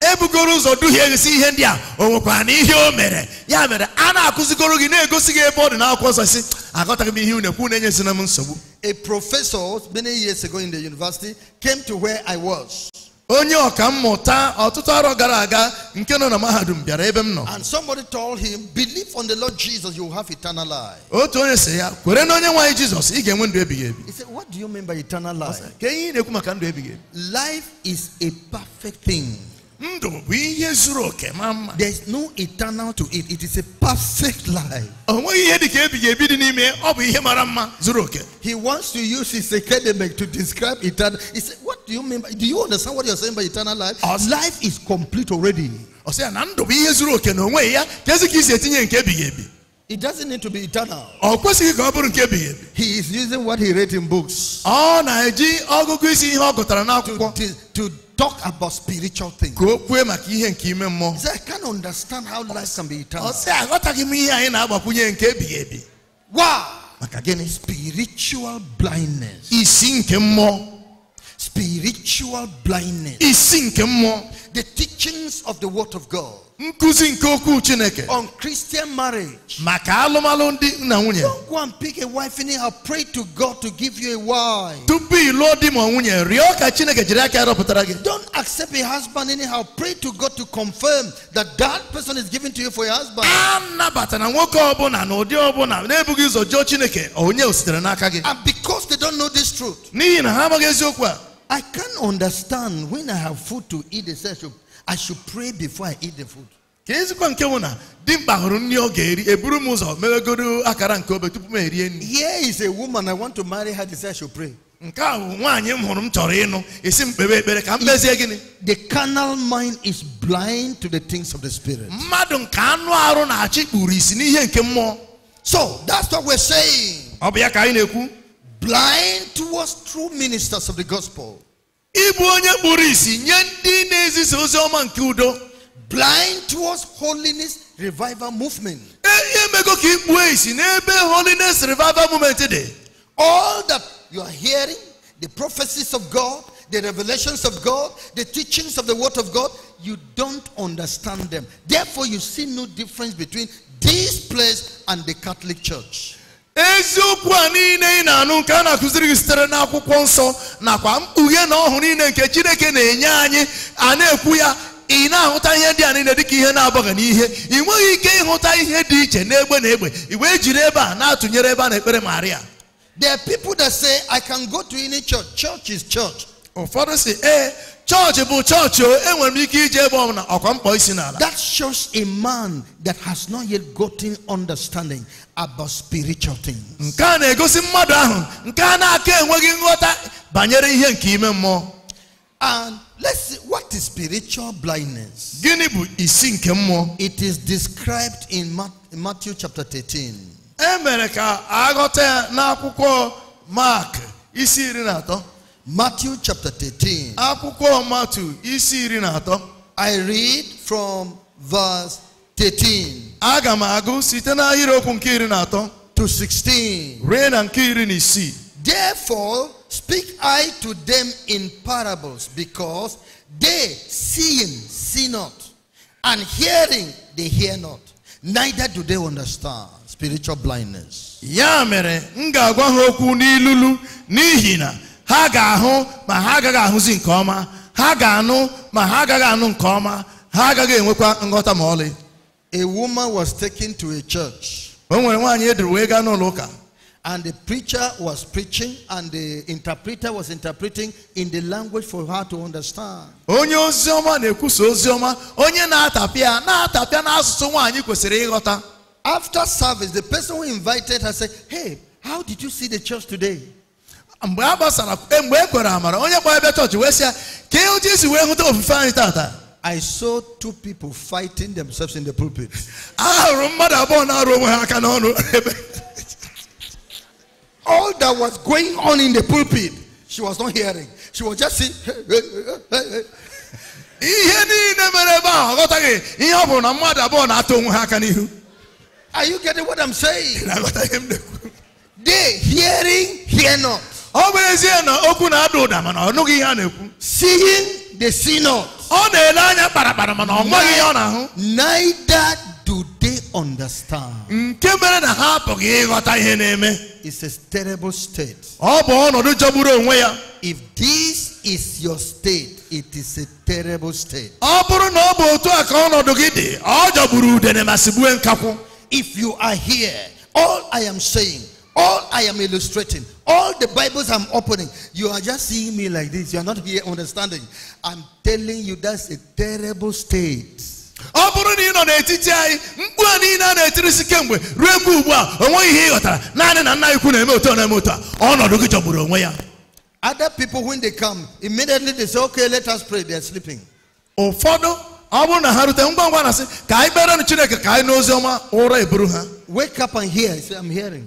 S1: ebugoro ụzọ duhie si ihe ndị a o nwekwara na ihe o mere ya mere a na-akụzigoro gị na-egosi gị ebe ọ dị n'akwụkwọ ọsọ si aghọtaghị m ihe na ekwu na-enyezina m nsogbu a professor many years ago in the university came to where I was onye ọka mmụta ọtụtụ arọ gara aga nke nọ na mahadum bịara ebe m nọ and somebody told him believe on the Lord Jesus you will have eternal life otu onye sị ya kwere na onye nwaanyị jesus ị ga-enwe ndụ ebighị ebi he said what do you mean by eternal life ka ihe ị na-ekwu maka ndụ ebighị ebi life is a perfect thing There's no eternal to it. It is a perfect life. He wants to use his academic to describe eternal. He said, What do you mean by do you understand what you're saying by eternal life? Life is complete already. It doesn't need to be eternal. He is using what he read in books. To, to, talk about spiritual things. He said, I can't understand how life can be eternal. Ọ sị Why? Maka Spiritual blindness. Isi Spiritual blindness. Isi The teachings of the word of God nkuzi nke okwu chineke on christian marriage maka nwunye don't go and pick a wife anyhow pray to god to give you a wife tupu ịlụọ di ma nwunye rịọ ka chineke jiri aka rọpụtara gị don't accept a husband anyhow pray to god to confirm that that person is given to you for your husband nwoke ọbụla na ụdị ọbụla na-ebughị ụzọ jụọ chineke onye o sitere n'aka gị and because they don't know this truth n'ihi na ha amaghị eziokwu a I can't understand when I have food to eat, they say I should I should pray before I eat the food. ka nke na hụrụ nri ọ ga-eri eburu m ụzọ akara nke obe tupu m erie nri here is a woman I want to marry her I should pray nke a bụ nwaanyị m hụrụ m chọrọ ịnụ esi m kpebe ekpere ka m gịnị the carnal mind is blind to the things of the spirit mmadụ nke anụ arụ na-achị kpuru isi n'ihe nke mmụọ so that's what we're saying ọ bụ ya ka anyị na-ekwu blind towards true ministers of the gospel ịbụ onye kpuru isi nye ndị na-ezisa ozi ọma nke udo blind towards holiness revival movement ihe mego ka ikpuo isi n'ebe holiness revival movement dị all that you are hearing the prophecies of god the revelations of god the teachings of the word of god you don't understand them therefore you see no difference between this place and the catholic church eziokwu a niile ị na-anụ nke a na-akụziri gị sitere n'akwụkwọ nsọ nakwa mkpughe na ọhụrụ niile nke chineke na-enye anyị a na-ekwu ya ị na-ahụta ihe ndị a niile dịka ihe na-abaghị n'ihe ị nweghị ike ịhụta ihe dị iche n'egbe na egbe ị wee jiri ebe a na-atụnyere ebe a na-ekpere Maria There are people that say I can go to any church. Church is church. Ụfọdụ si ee chọọchị bụ chọọchị o enwere m ike ije ebe ọbụla ọkwa mkpọ isi n'ala that shows a man that has not yet gotten understanding about spiritual things nke a na-egosi mmadụ ahụ nke a na-aka enweghị nghọta banyere ihe nke ime mmụọ and let's see what is spiritual blindness gịnị bụ isi nke mmụọ it is described in Matthew chapter 13 e mere ka aghọta ya n'akwụkwọ Mark isi iri na atọ Matthew chapter 13. Akwụkwọ Matthew isi iri na atọ. I read from verse 13. Aga m agụ site n'ahịrịokwu nke iri na atọ. To 16. Ruo na nke iri na isii. Therefore speak I to them in parables because they seeing see not and hearing they hear not neither do they understand spiritual blindness. Ya mere m ga-agwa ha okwu n'ilulu n'ihi na ha ga-ahụ ma ha agaghị ahụzi nke ọma ha ga-anụ ma ha agaghị anụ nke ọma ha agaghị enwekwa nghọta ma ọlị a woman was taken to a church o nwere nwaanyị eduru wee gaa n'ụlọ ụka and the preacher was preaching and the interpreter was interpreting in the language for her to understand onye ozi na na-ekwusa ozi onye na-atapịa na-atapịa n'asụsụ nwaanyị kwesịrị ịghọta after service the person who invited her said hey how did you see the church today mgbe a gbasara mgbe e kwere amara onye ebe chọọchị wee ka ihe isi wee hụta ofufe anyị tata I saw two people fighting themselves in the pulpit. all that was going on in the pulpit she was not hearing she was just saying are you getting what I'm saying? they hearing hear not ọ bụ ezie na okwu na-ada ụda mana ọ nụghị ihe a na-ekwu seeing the see ọ na-ele anya kparakpara mana ọ nweghị ihe ọ na-ahụ neither do they understand nke mere na ha apụghị ịghọta ihe na-eme It's a terrible state ọ bụ ọnọdụ jọgburu onwe ya if this is your state it is a terrible state ọ bụrụ na ọ bụ otu a ka ọnọdụ gị dị ọ jọgburu udene ma sigbue nkakwụ if you are here all I am saying all I am illustrating All the Bibles I'm opening, you are just seeing me like this. You are not here understanding. I'm telling you, that's a terrible state. ọ bụrụ na ị nọ n'etiti anyị mkpu a niile a na-etirisi kemgbe ruo mgbe ugbu a o nweghị ihe ị ghọtara naanị na nna ikwu na-eme otu na-eme otu a ọnọdụ gị jọgburu onwe ya other people when they come immediately they say okay let us pray they are sleeping ụfọdụ ọ bụrụ na ha rute ngwa ngwa na sị ka anyị kperenụ chineke ka anyị n'ozi ọma ụra eburu ha wake up and hear say, I'm hearing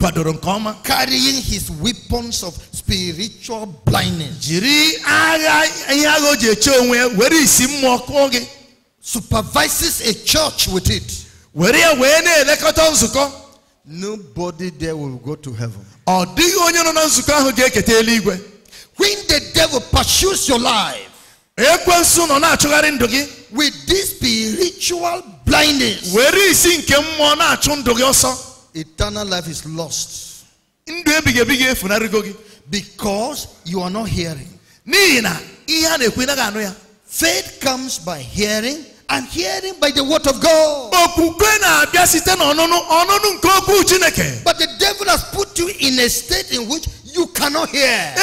S1: Padoronkoma. Carrying his weapons of spiritual blindness. Jiri agha ihe agha o ji eche onwe were isi mmụọ kụọ gị. Supervises a church with it. Were ya wee na-elekọta nzukọ. Nobody there will go to heaven. Ọ dịghị onye nọ na nzukọ ahụ ga-eketa eluigwe. When the devil pursues your life. Ekwensu nọ na-achụgharị ndụ gị. With this spiritual blindness. Were isi nke mmụọ na-achụ ndụ gị ọsọ eternal life is lost. Because you are not hearing. Faith comes by hearing and hearing by the word of God. But the devil has put you in a state in which you cannot hear.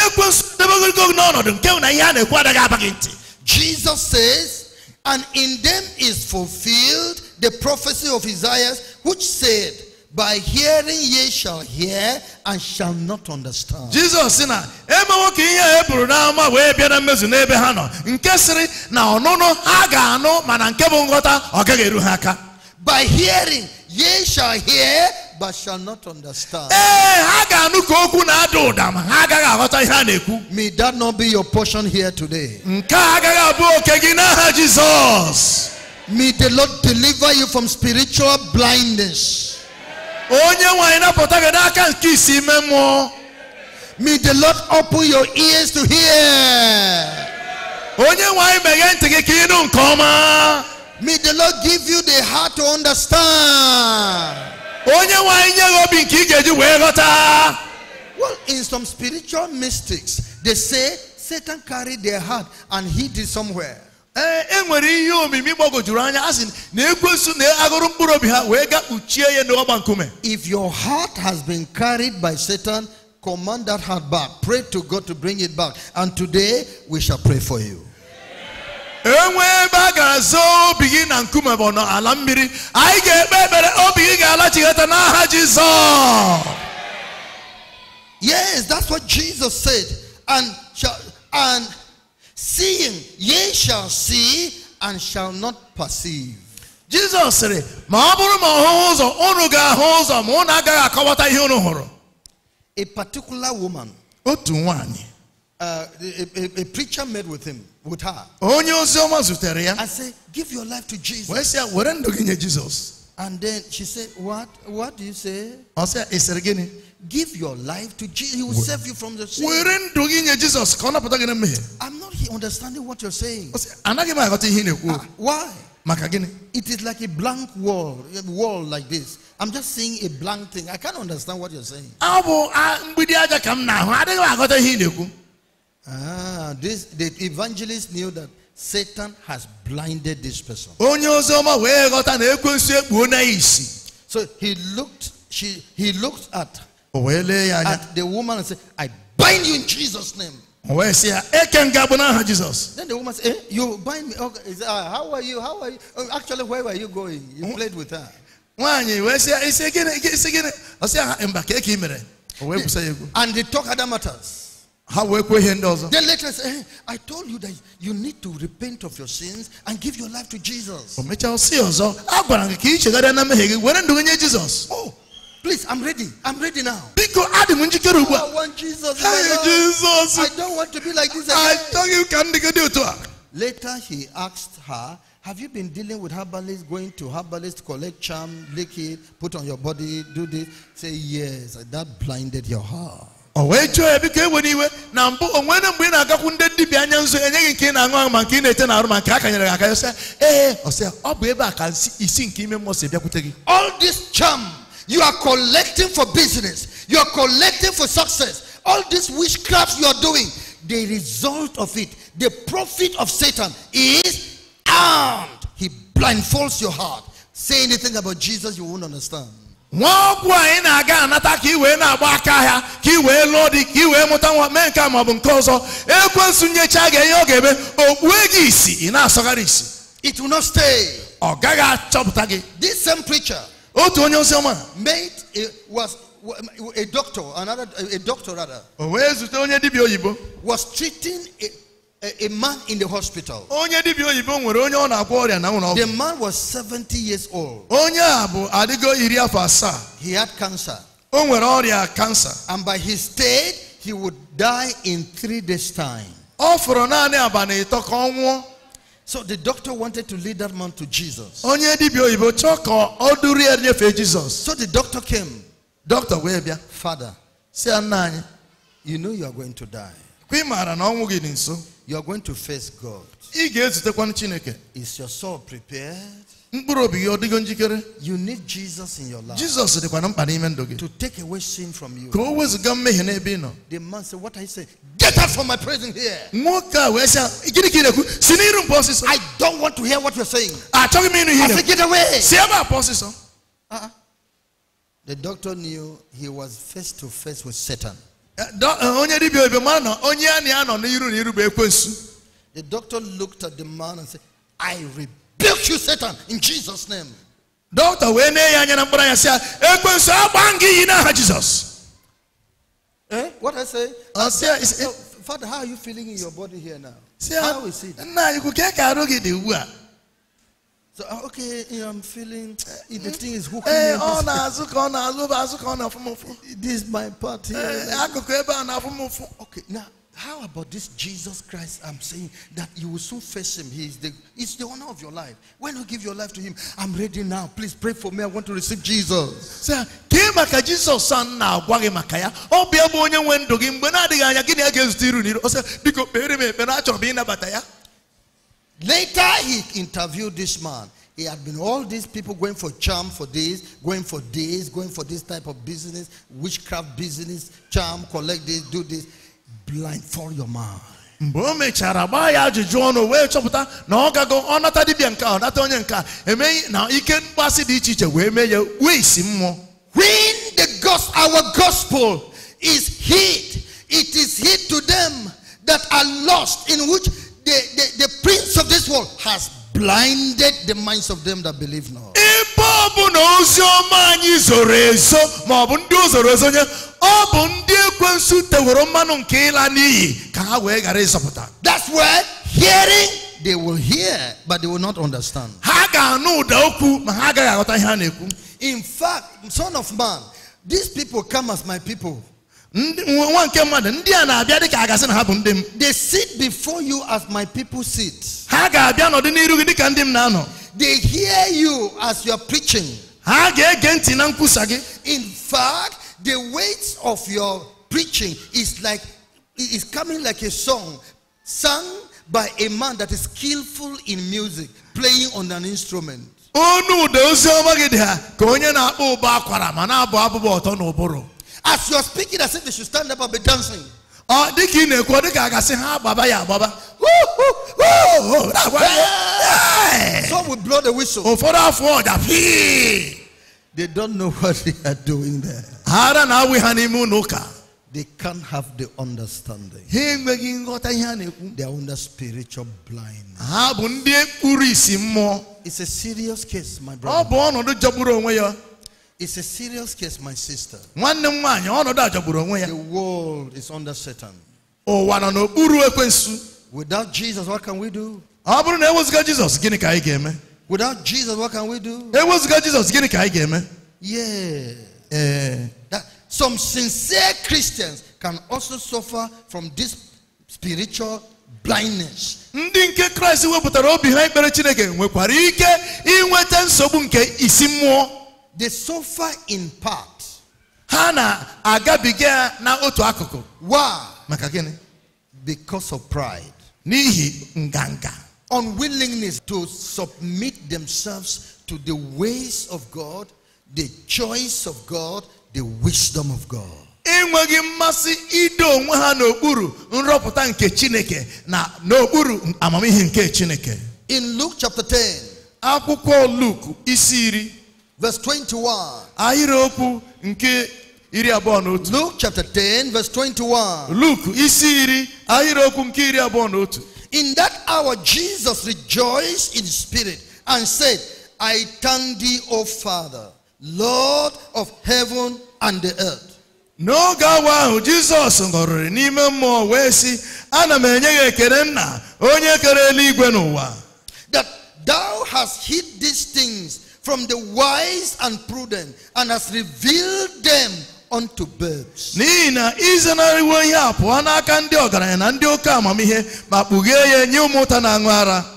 S1: Jesus says, and in them is fulfilled the prophecy of Isaiah, which said, by hearing ye shall hear and shall not understand. Jesus bịa na ha nọ nke sịrị na ọnụnụ ha ga-anụ mana nke bụ ha aka. By hearing ye shall hear but shall not understand. ha ga-anụ na ma ha na May that not be your portion here today. May the Lord deliver you from spiritual blindness onye nwanyị napụta gị n'aka nke isi ime anymore. May the Lord open your ears to hear. Onye nwanyị meghee ntị gị ka ịnụ nke ọma. May the Lord give you the heart to understand. Onye nwanyị nye gị obi nke ị ga-eji wee ghọta. Well, in some spiritual mystics, they say Satan carried their heart and hid it somewhere. Eh, ihe omimi anya na na agụrụ mkpụrụ obi ha wee ga kpuchie ya n'ọgba nkume if your heart has been carried by satan command that heart back pray to god to bring it back and today we shall pray for you ebe a obi gị na nkume bụ mmiri anyị ga-ekpe ekpere obi gị n'aha jizọs yes that's what jesus said and, and seeing ye shall see and shall not perceive Jesus said, ma bụrụ ma ọhụ ụzọ unu ga-ahụ ụzọ ma unu agaghị akọwata ihe unu hụrụ a particular woman otu nwanyị uh, a, a, preacher met with him, with her. I said, give your life to Jesus. Jesus? And then she said, what, what do you say? I said, give your life to Jesus. He will save you from the sin. Jesus. I'm not understanding what you're saying. Uh, why? It is like a blank wall, a wall like this. I'm just seeing a blank thing. I can't understand what you're saying. Ah, this the evangelist knew that Satan has blinded this person. So he looked, she he looked at at the woman said, I bind you in Jesus' name. Then the woman said, eh, You bind me. Okay. Uh, how are you? How are you? Uh, actually, where were you going? You played with her. And they talk other matters. Then later say, hey, eh, I told you that you need to repent of your sins and give your life to Jesus. Oh, Please, I'm ready. I'm ready now. Oh, I want Jesus. Hey, Jesus. I don't want to be like this again. Later, he asked her, Have you been dealing with herbalists, going to herbalists, collect charm, lick it, put on your body, do this? Say, Yes. That blinded your heart. Oh, o wee jụọ ya biko ewere iwe na mbụ ị na-agakwu ndị dibịa anya nzu ị na-aṅụ aṅụ ma nke ị na-ete na arụ ma nke a kanyere gị aka ya sị ee ọsịa ọ bụ ebe a ka isi nke ime mmụọ si bịakwute gị all this charm you are collecting for business. You are collecting for success. All these witchcrafts you are doing, the result of it, the profit of Satan is armed. He blindfolds your heart. Say anything about Jesus, you won't understand. it will not stay this same preacher otu onye oziọma mate a, eh, was a doctor another eh, a doctor rather o wee onye dibịa oyibo was treating a, man in the hospital onye dibịa oyibo nwere onye ọ na-agwọ ọrịa na nwụrụ ọgwụ the man was 70 years old onye a bụ adịgo iri afọ asaa he had cancer o nwere ọrịa kansa and by his state he would die in three days time ọ fọrọ naanị abalị ịtọ ka ọ nwụọ So the doctor wanted to lead that man to Jesus. So the doctor came. Doctor, where be? Father, you know you are going to die. You are going to face God. Is your soul prepared? you need jesus in your life jesus dịkwa na mkpa n'ime to take away sin from you the man said what i say get out from my presence here i don't want to hear what you're saying I said, get away si ebe uh-uh. the doctor knew he was face to face with satan eh, eh, the doctor looked at the man and said i repent Rebuke you, Satan, in Jesus' name. Dọkịta wee nee ya anya na mkpụrụ anya say, ya ekwensu agba gị iyi n'aha Jizọs. Eh? What I say? Uh, say uh, so, Father, how are you feeling in your body here now? See, how is it? Nna anyị ka ka arụ gị dị ugbu So uh, okay, I'm feeling uh, the hmm? thing is hooking eh, me. Hey, oh, na na-azụ ka na-azụ bụ azụ ka o This is my part here. Eh, eh, akụkụ ebe a na-afụ Okay, now how about this Jesus Christ? I'm saying that you will soon face him. He is the it's the owner of your life. When you give your life to him, I'm ready now. Please pray for me. I want to receive Jesus. Say, son Ọ gịnị biko Later he interviewed this man. He had been all these people going for charm for this, going for this, going for this type of business, witchcraft business, charm, collect this, do this blindfold your mind. mgbe o mechara gbaa ya ajụjụ ọnụ wee chọpụta na ọ gago ọ nata dibịa nke a nata onye nke a emeghị na ike mkpasị dị iche iche wee mee ya wisi mmụọ when the gospel our gospel is hid it is hid to them that are lost in which the, the, the prince of this world has blinded the minds of them that believe not. Igbo bụ na ozi ọma anyị zoro ezo ndị ezo nye ọ bụ ndị ekwensu mmanụ nke ịla n'iyi ka ha wee ghara ịzọpụta that's where hearing they will hear but they will not understand ha ga-anụ ụda okwu ma ha agaghị aghọta ihe na-ekwu in fact son of man these people come as my people nwa nke mmadụ ndị a na-abịa dịka a gasị na ha bụ ndị m they sit before you as my people sit ha ga-abịa nọdụ n'iru gị dịka ndị m na-anọ they hear you as you are preaching ha ga-ege ntị na nkwusa gị in fact the weight of your preaching is like is coming like a song sung by a man that is skillful in music playing on an instrument onu ụda ozi ọma gị dị ha ka onye na-akpọ ụbọ akwara ma na-abụ abụba ọtọ n'ụbụrụ As you're speaking, as if they should stand up and be dancing. Oh, dị ka ị na-ekwu ọ dị ka a gasị ha gbaba ya agbaba some will blow the whistle ụfọdụ afọ ọja they don't know what they are doing there ara na-awụ ha n'ime they can't have the understanding. They are under spiritual blind. Ha blindness. Ah, it's a serious case, my brother. Oh, jaburo it's a serious case, my sister. The world is under Satan. Without Jesus, what can we do? Without Jesus, what can we do?
S2: Yeah.
S1: Uh, that, some sincere Christians can also suffer from this spiritual blindness. Ndị they suffer in part. Hana na na otu akụkụ. Why? Makagene. Because of pride. N'ihi nganga. Unwillingness to submit themselves to the ways of God, the choice of God, the wisdom of God. enweghị mmasị ido onwe ha n'okpuru nrọpụta nke chineke na n'okpuru amamihe nke chineke in luke chapter 10 akwụkwọ luke isi iri Verse 21. Ahịrịokwu nke iri abụọ na otu. Luke chapter 10 verse 21. Luke isi iri ahịrịokwu nke iri abụọ na otu. In that hour Jesus rejoiced in spirit and said, I thank thee, O Father, Lord of heaven and the earth. n'oge awa ahụ jizọs ṅụrịrị n'ime mmụọ wee sị ana m enye gị ekele nna onye kere eluigwe n'ụwa Thou hast hid these things from the wise and prudent and hast revealed them unto birds. Nina na a pụọ na ụta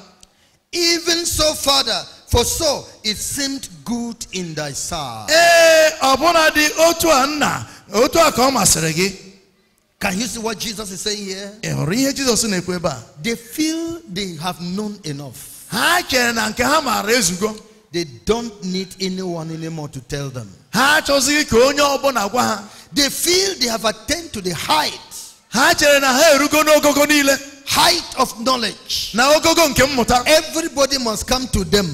S1: even so father for so it seemed good in thy sight. Can you see what Jesus is saying here? They feel they have known enough they don't need anyone anymore to tell them they feel they have attained to the height height of knowledge everybody must come to them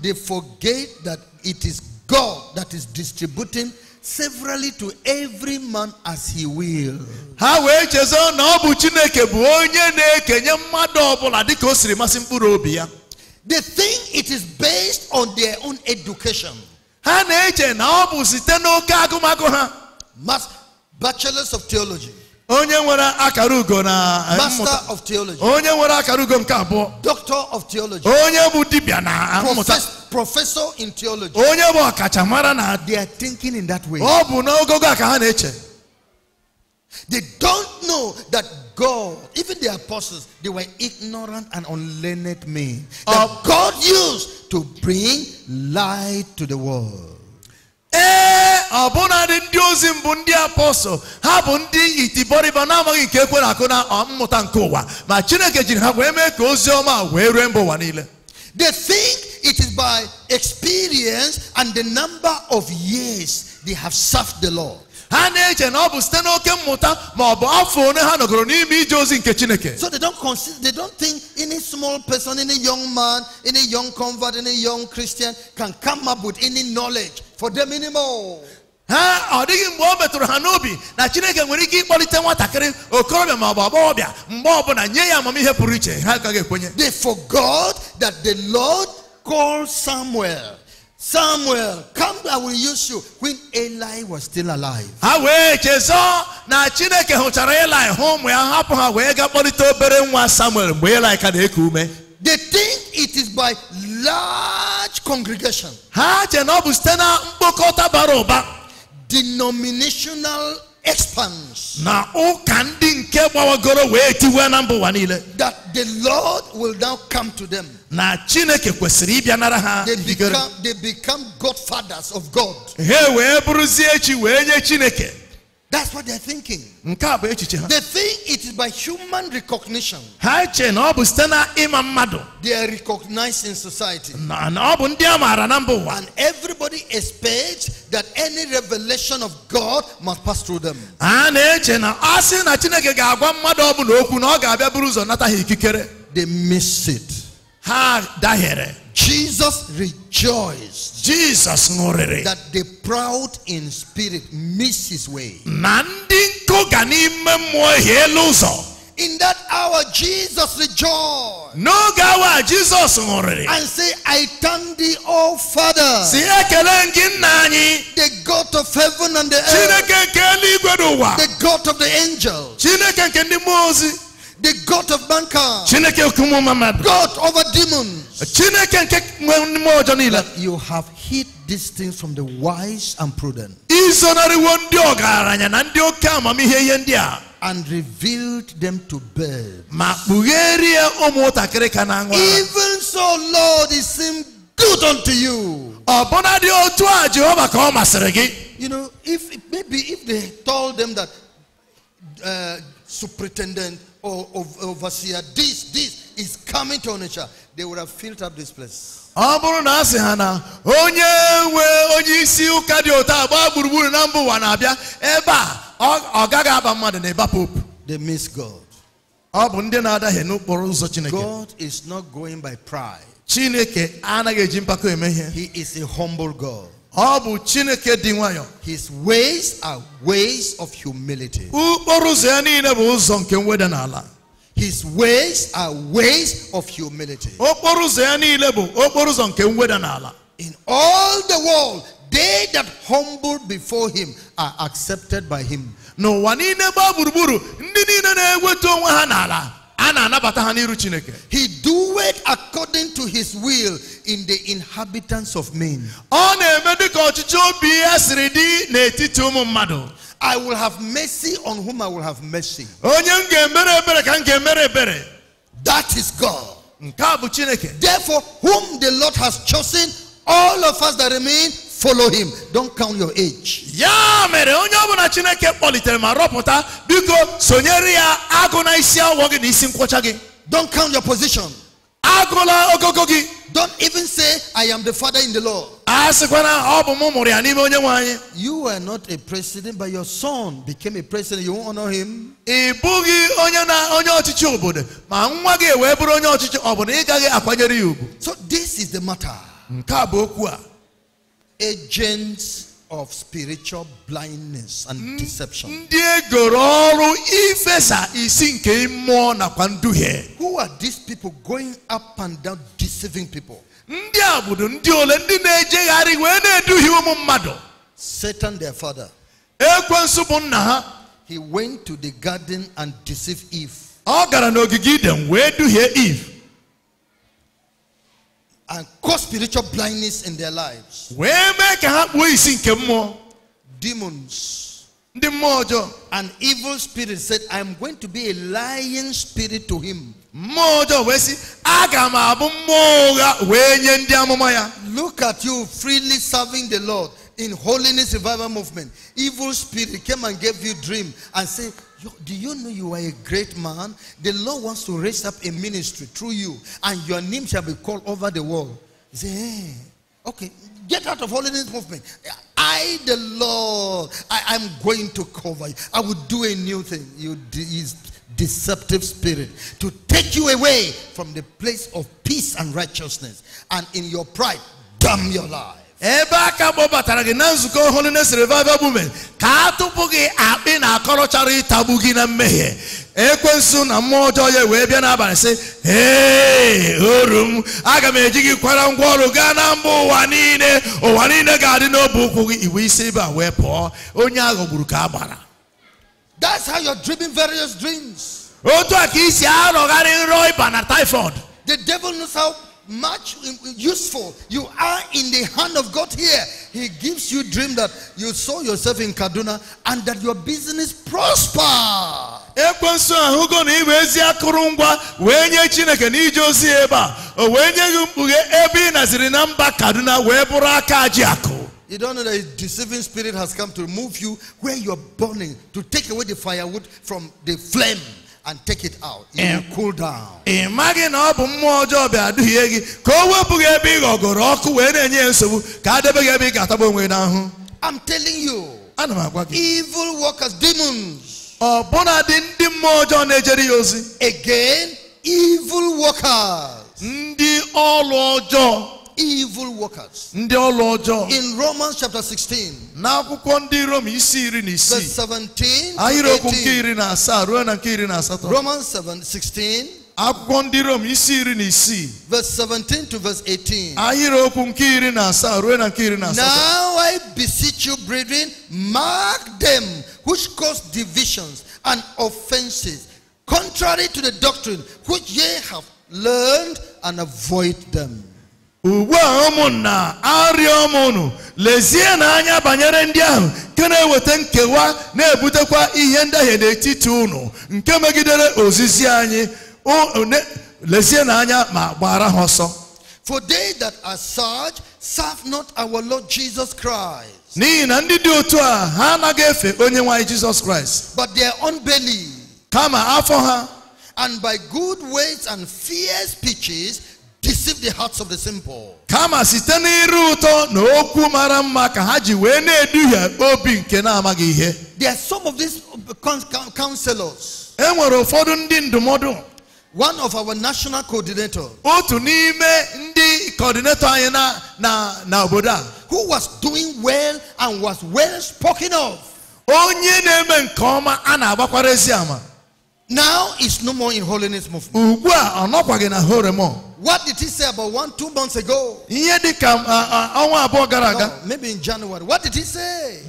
S1: they forget that it is God that is distributing severally to every man as he will. ha wee chezo na ọ bụ chineke bụ onye na-ekenye mmadụ ọbụla dịka o siri masị mkpụrụ obi ya they think it is based on their own education ha na-eche na ọ bụ site n'oke agụmagụ ha Mas bachelors of theology onye nwere akara ugo na eh, master of theology onye nwere akara ugo nke abụọ doctor of theology onye bụ dibịa na eh, mmụta professor in theology. they are thinking in that way. they don't know that God, even the apostles, they were ignorant and unlearned men that um, God used to bring light to the world. ee ọbụnadị ndị ozi mbụ ndị apọstọl ha bu itibọrịba na-amaghị nke na aku na ma chineke jiri ha wee mee ka they think it is by experience and the number of years they have served the Lord. So they don't consider, they don't think any small person, any young man, any young convert, any young Christian can come up with any knowledge for them anymore. They forgot that the Lord Call Samuel. Samuel, come I will use you. When Eli was still alive. Ha wee chezọ na They think it is by large congregation. Denominational expanse. That the Lord will now come to them na chineke kwesịrị ịbịanara ha they become godfathers of god wee bụrụzie chi wee nye chineke That's what they're thinking. They think it is by human recognition. They are recognized in society. And everybody expects that any revelation of God must pass through them. They miss it. Jesus rejoiced Jesus ṅụrịrị that the proud in spirit miss his way. In that hour Jesus rejoiced. Jesus And say I thank thee O Father. The God of heaven and the earth. The God of the angels. The God of mankind. God over demons. you have hid these things from the wise and prudent. And revealed them to birds. Even so, Lord, it seemed good unto you. You know, if maybe if they told them that uh, superintendent overseer this this is coming to Onitsha they would have filled up this place ọ bụrụ na a sị ha na onye nwe onye isi ụka dị ụtọ agba gburugburu na mba ụwa na-abịa ebe a ọ gaghị aba mmadụ na ịba pope they miss God ọ bụ ndị na adaghị n'okporo ụzọ Chineke God is not going by pride Chineke anaghị eji mpako eme ihe he is a humble God His ways are ways of humility. His ways are ways of humility. In all the world, they that humble before him are accepted by him. No one in the he doeth according to his will in the inhabitants of men I will have mercy on whom I will have mercy. That is God. Therefore, whom the Lord has chosen, all of us that remain follow him don't count your age ya mere onye ọbụla chineke kpọlitere ma rọpụta biko sonyere ya agụ na isi awọ gị na isi nkwọcha gị don't count your position agụla ogogo gị don't even say i am the father in the law a ọ bụ m mụrụ ya n'ime onye nwanyị. you were not a president but your son became a president you won't honor him ị bụghị onye na onye ọchịchị obodo ma nwa gị wee bụrụ onye ọchịchị ọ bụ na ị gaghị akwanyere ya ugwu so this is the matter nke a bụ okwu a agents of spiritual blindness and mm. deception. Mm. Who are these people going up and down deceiving people? Satan, their father. He went to the garden and deceived Eve and cause spiritual blindness in their lives. wee make ha kpuo isi nke mmụọ Demons ndị mmụọ ọjọọ an evil spirit said, I am going to be a lying spirit to him. mmụọ ọjọọ wee sị aga m abụ mmụọ ụgha wee nye ndị amụma ya Look at you freely serving the Lord in holiness revival movement. Evil spirit came and gave you dream and say, you, do you know you are a great man? The Lord wants to raise up a ministry through you, and your name shall be called over the world. say, hey, eh, okay, get out of holiness movement. I, the Lord, I am going to cover you. I will do a new thing. You deceptive spirit to take you away from the place of peace and righteousness, and in your pride, damn your life. ebe aka kpọbatara gị na nzukọ holiness revival movement ka a tụpụ gị akpị na akọrọchara ịtagbu gị na mmehie ekwensu na mmụọ ọjọọ ya wee bịa n'abalị sị ee oru m aga m eji gị kwara ngwa ọrụ gaa na mba ụwa niile ụwa niile ga-adị n'obi ụkwụ gị iwe isi ebe a wee pụọ onye aghọgburu ka a gbara that's how various dreams otu a ka isi arọgharị nrọ ịba na typhoid the devil knows how much useful. You are in the hand of God here. He gives you dream that you saw yourself in Kaduna and that your business prosper. ekwensu ahụ akụrụngwa chineke naziri kaduna You don't know that a deceiving spirit has come to remove you where you're burning, to take away the firewood from the flame. and take it out. And eh. cool down. ị maghị na ọ bụ mmụọ ọjọọ bịa duhie gị ka o wepụghị ebe ị ghọgoro ọkụ wee na-enye nsogbu ka a debe gị ebe ị ga-atagbu onwe n'ahụ I'm telling you. ana m agwa gị evil workers demons. ọbụna dị ndị mmụọ ọjọọ na-ejere ya ozi again evil workers ndị ọrụ ọjọọ evil workers. In Romans chapter 16, Now I beseech you, brethren, mark them which cause divisions and offenses, contrary to the doctrine which ye have learned, and avoid them. ugbu a ụmụnna arịọ m lezie na anya banyere ndị ahụ nke na-eweta nkewa na-ebutekwa ihe ndahie n'etiti unu nke megidere ozizi anyị lezie na anya ma gbara ha ọsọ for they that are such serve not our lord jesus christ n'ihi na ndị dị otu a ha anaghị efe onye nwanyị anyị jesus christ but their own kama afọ ha and by good words and fierce speeches deceive the hearts of the simple. kama site n'ịrụ ụtọ na okwu mara mma ka ha ji wee na-eduhie obi nke na-amaghị ihe there are some of these uh, counselors. e nwere ụfọdụ ndị ndụmọdụ one of our national coordinators. otu n'ime ndị coordinator anyị na na na obodo a who was doing well and was well spoken of. onye na-eme nke ọma a na-agbakwara ezi ama Now it's no more in holiness movement. What did he say about one, two months ago? No, maybe in January. What did he say?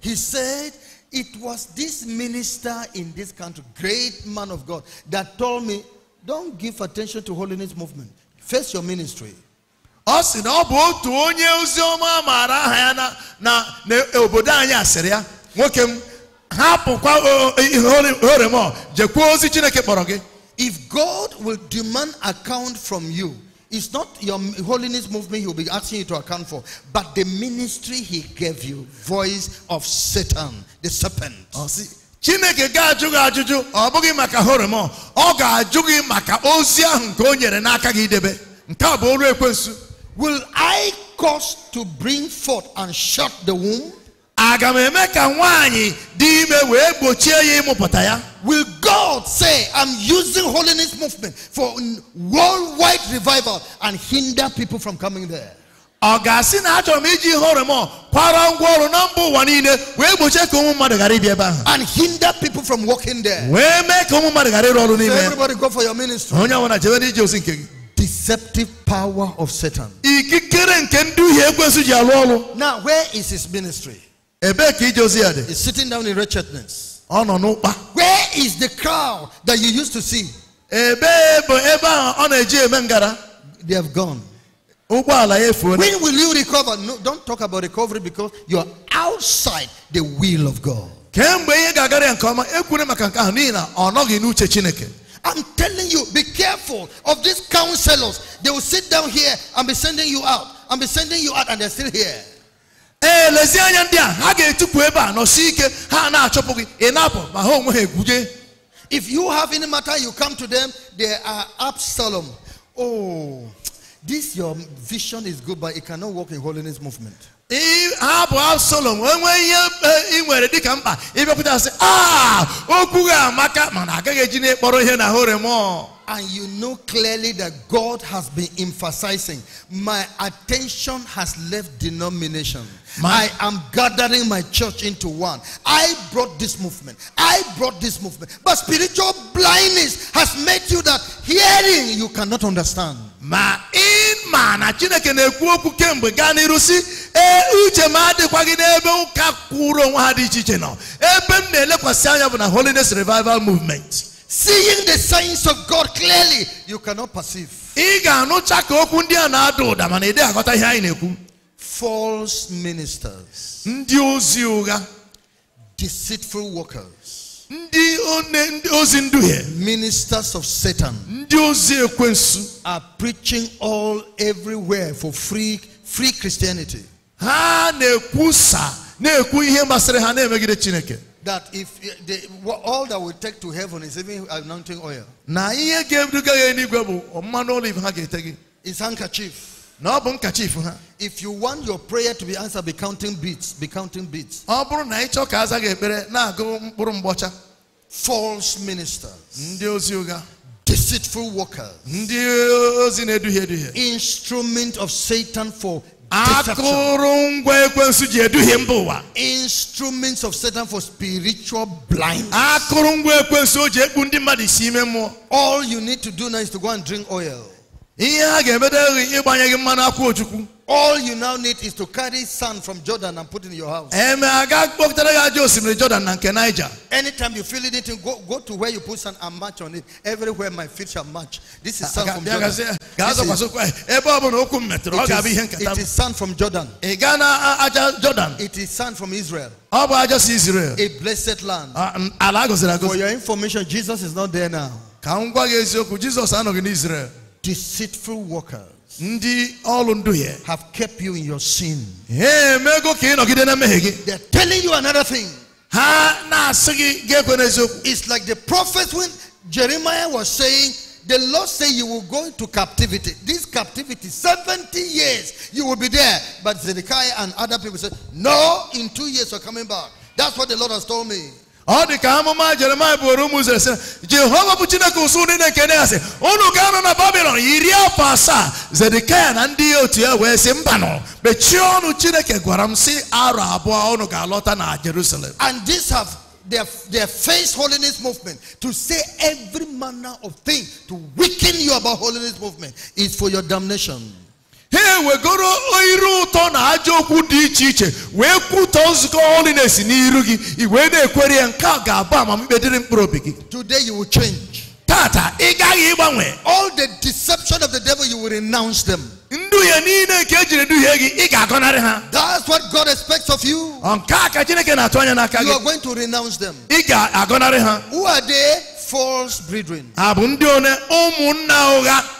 S1: He said, It was this minister in this country, great man of God, that told me, Don't give attention to holiness movement. Face your ministry. ọ na uh, uh, uh, if God will demand account from you, it's not your holiness movement he'll be asking you to account for, but the ministry he gave you, voice of Satan, the serpent. Oh, see. chineke ga-ajụ gị ajụjụ ọ bụghị maka horemon ọ ga-ajụ gị maka ozi ahụ nke o nyere n'aka gị idebe nke a bụ ọrụ ekwensu will i cause to bring forth and shut the womb aga m eme ka nwaanyị dị ime wee gbochie ya ịmụpụta ya will god say i'm using holiness movement for worldwide revival and hinder people from coming there ọ ga-asị na achọrọ m iji kwara na mba ụwa niile wee gbochie ka ụmụ mmadụ ghara ịbịa ebe ahụ and hinder people from walking there wee mee ka ụmụ mmadụ ghara ịrụ ọrụ n'ime everybody go for your ministry onye ọbụla jebe ozi nke gị deceptive power of satan ikikere nke ọrụ now where is his ministry ebee is sitting down in wretchedness. nọ where is the crowd that you used to see. they have gone. when will you recover? no don't talk about recovery because you are outside the will of God. I'm telling you, be careful of these counselors. They will sit down here and be sending you out. And be sending you out, and they're still here anya ndị a ha ga-etupu ebe a nọsi ike ha na-achọpụ gị ị na-apụ ma ha onwe ha egwuje If you have any matter, you come to them, they are Absalom. Oh, this your vision is good, but it cannot work in holiness movement. ha bụ Absalom enwe ihe ị nwere dịka mkpa ịbịakwụta sị a ah, okwu gị amaka mana agaghị eji na-ekpọrọ ihe na horemọ And you know clearly that God has been emphasizing, my attention has left denomination. My, I am gathering my church into one. I brought this movement. I brought this movement. But spiritual blindness has made you that hearing you cannot understand. ma in ma na chineke na-ekwu okwu kemgbe gaa n'iru si ee uche m adịkwaghị n'ebe ụka kwụrụ onwe ha dị iche iche nọ ebe m na-elekwasị anya bụ na holiness revival movement seeing the signs of god clearly you cannot perceive ị ga-anụcha ka okwu ndị a na-ada ụda mana ị dịghị aghọta ihe anyị na-ekwu false ministers ndị ozi ụgha deceitful workers ndị ozi nduhie ministers of satan ndị ozi ekwensu are preaching all everywhere for free free christianity ha na-ekwusa na-ekwu ihe masịrị ha na-emegide chineke that if eh, they, all that will take to heaven is even anointing oil na ihe ga-ebuga ya eluigwe bụ mmanụ olive ha ga-ete gị handkerchief if you want your prayer to be answered, be counting beats. Be counting beats. False ministers. Deceitful workers. Instrument of Satan for Deception. Instruments of Satan for spiritual blindness. All you need to do now is to go and drink oil. All you now need is to carry sand from Jordan and put it in your house. Anytime you feel it, go, go to where you put sand and match on it. Everywhere my feet shall match. This is sand from Jordan. is, it, is, it is sand from Jordan. It is sand from Israel. A blessed land. For your information, Jesus is not there now. Jesus anọghị n'Israel deceitful workers ndị ọrụ ndu ya have kept you in your sin ka ị nọgide na mmehie gị they are telling you another thing ha na-asị gị ekwe n'eziokwu it's like the prophet when Jeremiah was saying the Lord said you will go into captivity. This captivity, 70 years, you will be there. But Zedekiah and other people said, no, in two years we're coming back. That's what the Lord has told me ka amụma jeremaya ụmụ izrel sị jehova bụ chineke ụsụ na ya sị unu ga-anọ na babilon iri afọ asaa zedekaya na ndị otu ya wee sị mbanụ mechie ọnụ chineke gwara m sị arọ abụọ unu ga-alọta na jerusalem and this have their, their face holiness movement to say every manner of thing to weaken you about holiness movement is for your damnation ha ewegoro iru ụtọ na ajọ okwu dị iche iche wee kwutọ nzukọ holiness n'iru gị ị wee na-ekwere ya nke a ga-abụ amamikpe dịrị mkpụrụ obi gị today you will change tata ị gaghị ịgbanwe all the deception of the devil you will renounce them nduhie niile nke ejiri duhie gị ị ga-agọnarị ha that's what God expects of you nke a ka Chineke na-atụ anya n'aka gị you are going to renounce them ị ga-agọnarị ha who are they false brethren ha bụ ndị one ụmụnna ụgha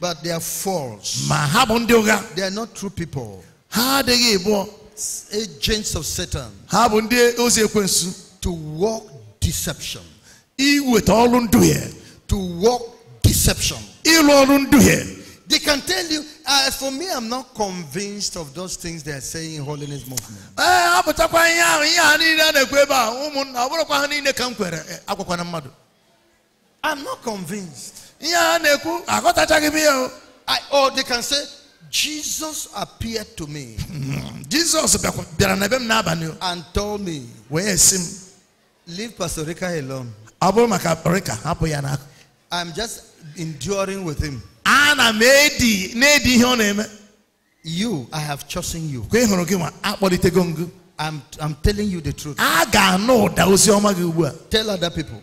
S1: But they are false. They are not true people. Agents of Satan. To walk deception. To walk deception. They can tell you, as uh, for me, I'm not convinced of those things they are saying in holiness movement. Eh, eh, I'm not convinced. I, or they can say, Jesus appeared to me. Hmm. Jesus and told me, Leave Pastor Rika alone. I'm just enduring with him. You, I have chosen you. I'm, I'm telling you the truth. Tell other people.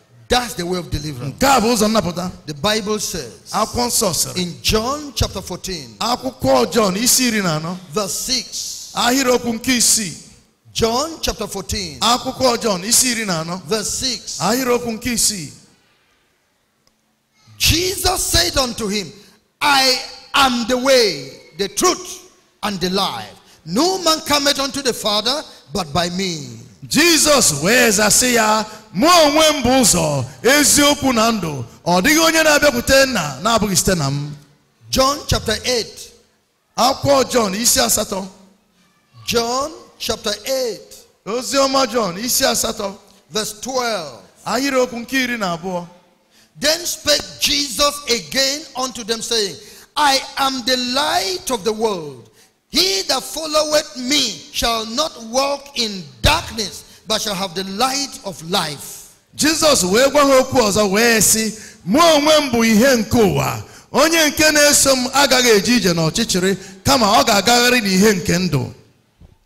S1: That's the way of deliverance. The Bible says in John chapter 14, verse 6. John chapter 14, verse 6. Jesus said unto him, I am the way, the truth, and the life. No man cometh unto the Father but by me. Jesus, wee zasị ya mụ onwe m bụ ụzọ eziokwu na ndụ ọ dịghị onye na-abịakwute nna na-abụghị site na m john chapter 8 akwụkwọ john isi asatọ john chapter 8 Ozioma john isi asatọ verse 12 ahịrịokwu nke iri na abụọ then spake jesus again unto them saying i am the light of the world he that followeth me shall not walk in darkness, but shall have the light of life. Jesus, wee gwa ha okwu ọzọ wee sị mụ onwe m bụ ihe nke ụwa onye nke na-eso m agaghị eje ije n'ọchịchịrị kama ọ ga-agagharị n'ihe nke ndụ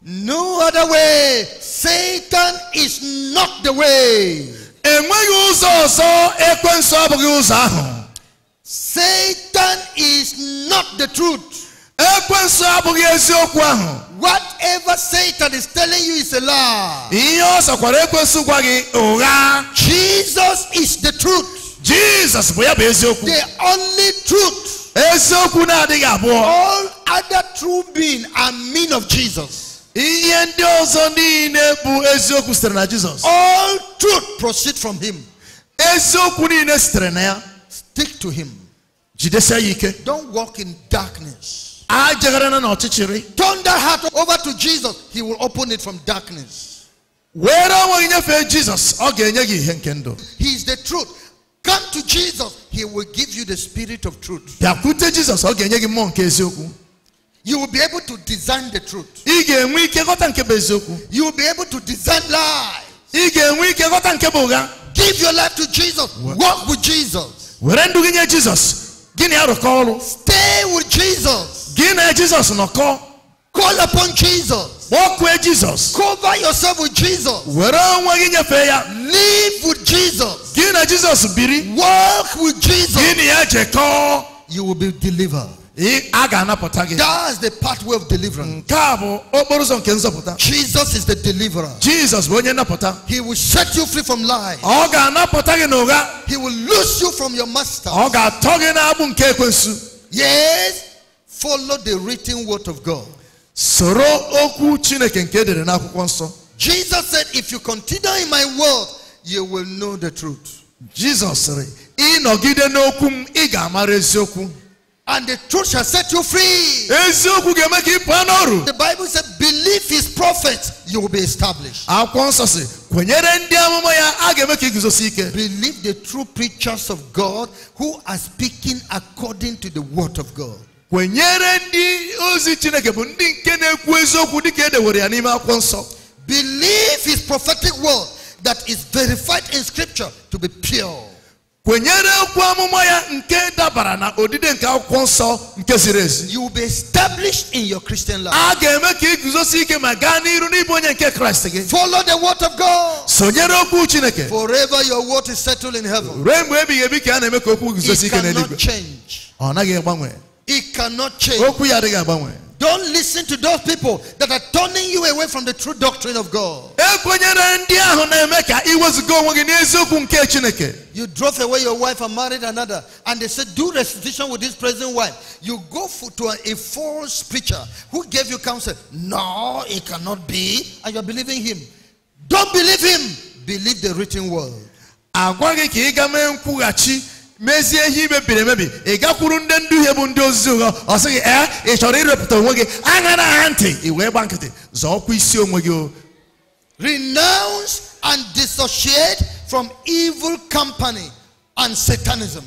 S1: No other way. Satan is not the way. Enweghị ụzọ ọzọ ekwensu abụghị ụzọ ahụ. Satan is not the truth. Whatever Satan is telling you is a lie. Jesus is the truth. Jesus, the only truth. All other truth beings a mean of Jesus. All truth proceeds from him. Stick to him. Don't walk in darkness turn that heart over to jesus he will open it from darkness were onwe nyefee jesus ọ Jesus? he is the truth come to jesus he will give you the spirit of truth jesus You will be able to discern the truth. You will be able to discern lies. Give your life to Jesus. What? Walk with Jesus. Stay with Jesus gị Jesus jizọs nọkọ Call upon Jesus. with Jesus. Cover yourself with Jesus. Were onwe gị ya. Live with Jesus. Gị Jesus biri. Walk with Jesus. Gị na ya jekọọ. You will be delivered. Aga na pota gị. That's the pathway of deliverance. Jesus is the deliverer. Jesus He will set you free from lies. Aga na pota He will loose you from your master. Yes. Follow the written word of God. Jesus said, if you continue in my word, you will know the truth. Jesus said, And the truth shall set you free. The Bible said, believe his prophet, you will be established. ị Believe the true preachers of God who are speaking according to the word of God. kwenyere ndị ozi chineke bụ ndị nke na-ekwu eziokwu dịka e dewere ya n'ime akwụkwọ nsọ believe his prophetic word that is verified in scripture to be pure kwenyere okwu amụma ya nke dabara na odide nke akwụkwọ nsọ nke ziri ezi you will be established in your christian life a ga-eme ka guzosi ike ma gaa n'iru n'ịbụ onye nke kraịst gị follow the word of god sonyere okwu chineke forever your word is settled in heaven ruo mgbe ebighị ebi ka a na-eme ka okwu guzosi ike n'eluigwe ọ naghị agbanwe It cannot change. Don't listen to those people that are turning you away from the true doctrine of God. You drove away your wife and married another, and they said, Do restitution with this present wife. You go for, to a, a false preacher who gave you counsel. No, it cannot be. And you're believing him. Don't believe him. Believe the written word mezie ihe i mebiri emebi ị gakwuru ndị nduhie bụ ndị ozizi ụgha ọ sịghị ee ị chọrọ irepụta onwe gị aṅara aha ntị ị wee gba nkịtị zọọkwa isi onwe gị o renounce and dissociate from evil company and satanism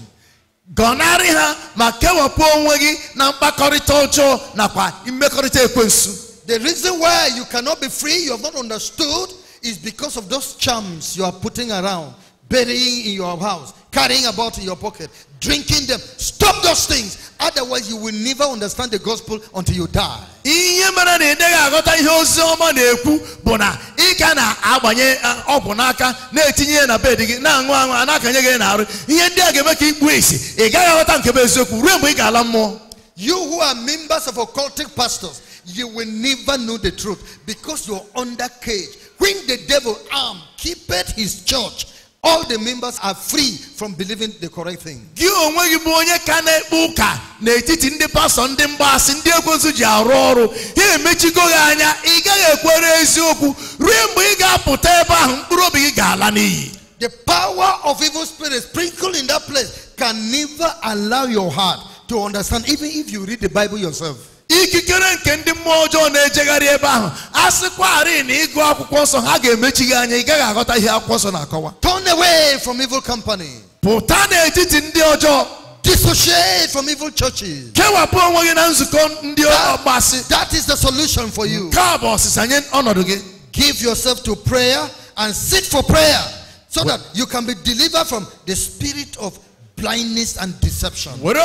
S1: gọnarị ha ma kewapụ onwe gị na mkpakọrịta ọjọọ nakwa mmekọrịta ekwensu the reason why you cannot be free you have not understood is because of those charms you are putting around burying in your house carrying about in your pocket, drinking them. Stop those things. Otherwise, you will never understand the gospel until you die. na na eh, na na you who are members of occultic pastors you will never know the truth because you are under cage when the devil arm keepeth his church all the members are free from believing the correct thing. Gị onwe gị bụ onye ka na-ekpe ụka n'etiti ndị pastọ ndị ndị ekwensu ji arụ ọrụ ha emechigo gị anya ị gaghị ekwere eziokwu ruo mgbe ị ga-apụta ebe ahụ mkpụrụ obi gị ga-ala n'iyi. The power of evil spirits sprinkled in that place can never allow your heart to understand even if you read the Bible yourself ikikere nke ndị mmụọ ọjọọ na-ejegharị ebe ahụ a sịkwarị na ịgụ akwụkwọ nsọ ha ga-emechi gị anya ị gaghị aghọta ihe akwụkwọ nsọ na-akọwa turn away from evil company pụta n'etiti ndị ọjọọ Dissociate from evil churches. That, that is the solution for you. Give yourself to prayer and sit for prayer so that you can be delivered from the spirit of blindness and deception. you have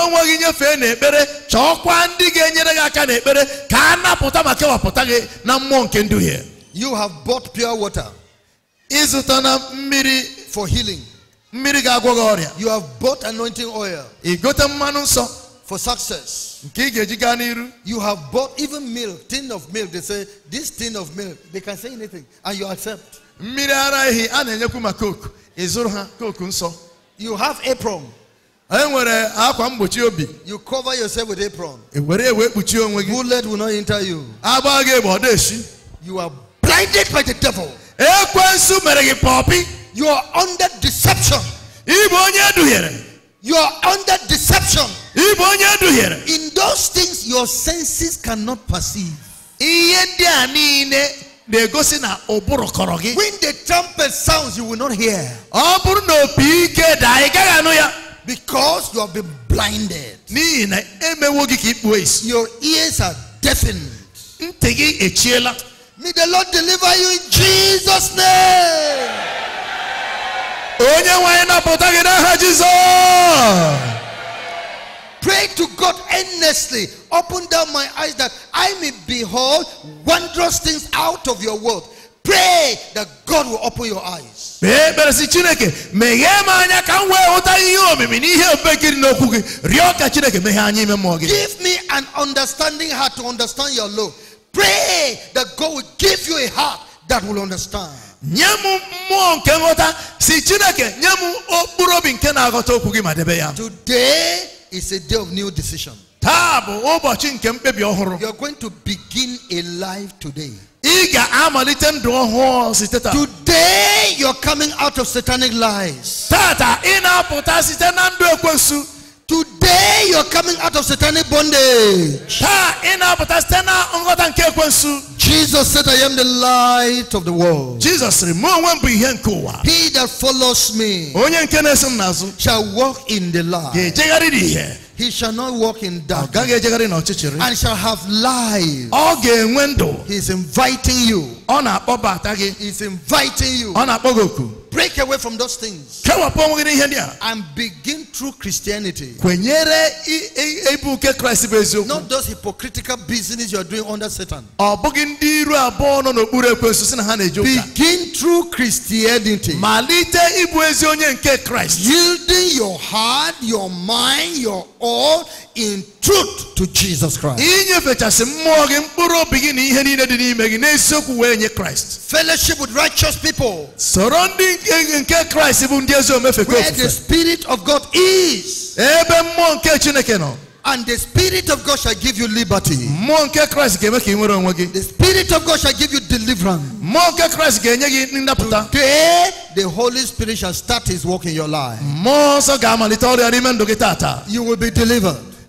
S1: bought pure water. for healing. you have bought anointing oil. for success. you have bought even milk tin of milk they say this tin of milk they can say anything and you accept. a na you have apron. enwere akwa mgbochi obi you cover yourself with apron e were ewe kpuchie onwe gị bullet will not enter you agba gị bụ ọ esi you are blinded by the devil ekwensu mere gị pọpi you are under deception ịbụ onye eduhiere you are under deception ịbụ onye eduhiere in those things your senses cannot perceive ihe ndị a niile na-egosi na ụbụrụ kọrọ gị when the trumpet sounds you will not hear ọ bụrụ na opi ike daa ị gaghị anụ ya Because you have been blinded. Your ears are deafened. May the Lord deliver you in Jesus' name. Pray to God endlessly. Open down my eyes that I may behold wondrous things out of your word. Pray that God will open your eyes. Give me an understanding heart to understand your law. Pray that God will give you a heart that will understand. Today is a day of new decision. You're going to begin a life today i Today you are coming out of satanic lies. Today you are coming out of satanic bondage. Jesus said, I am the light of the world. Jesus He that follows me. Shall walk in the light. He shall not walk in darkness. And shall have life. He's inviting you. is inviting you. Break away from those things. And begin true Christianity. Not those hypocritical business you are doing under Satan. Begin true Christianity. Yielding your heart, your mind, your all in truth to Jesus Christ. Fellowship with righteous people. Surrounding Christ where the Spirit of God is. And the Spirit of God shall give you liberty. The Spirit of God shall give you deliverance. Today, the Holy Spirit shall start his work in your life. You will be delivered.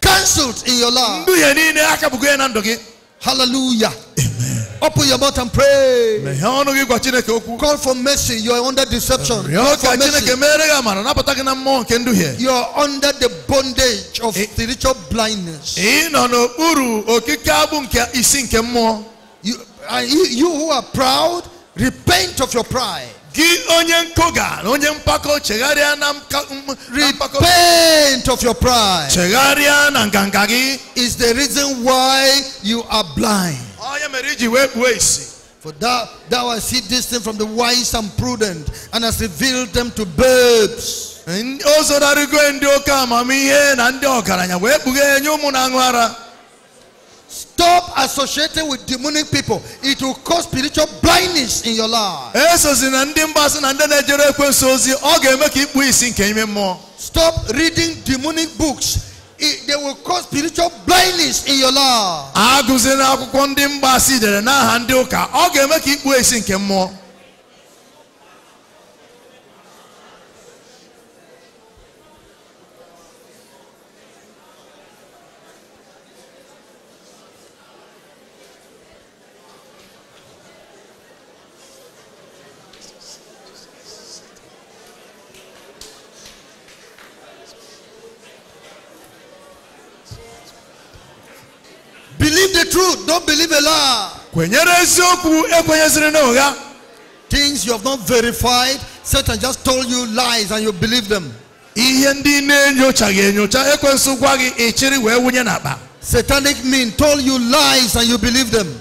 S1: cancelled in your life. Hallelujah. Amen. Open your mouth and pray. Call for mercy. You are under deception. You are under the bondage of spiritual blindness. You, you who are proud, repent of your pride. Repent of your pride is the reason why you are blind. For thou, thou hast hid this thing from the wise and prudent and hast revealed them to babes. stop associating with demonic people it will cause spiritual blindness in your life. E sozi na ndị mgbasa na ndị na ejere ekwensu ozi, ọ ga-eme ka ikpu isi nke ime mmụọ. Stop reading demonic books, they will cause spiritual blindness in your life. Aguzi na akwụkwọ ndị mgbasa dere n'aha ndị ụka, ọ ga-eme ka ikpu isi nke mmụọ. don't believe a lie. Things you have not verified, Satan just told you lies and you believe them. Satanic mean told you lies and you believe them.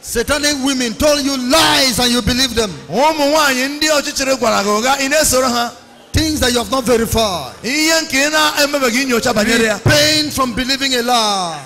S1: Satanic women told you lies and you believe them. Things that you have not verified. Pain from believing a lie.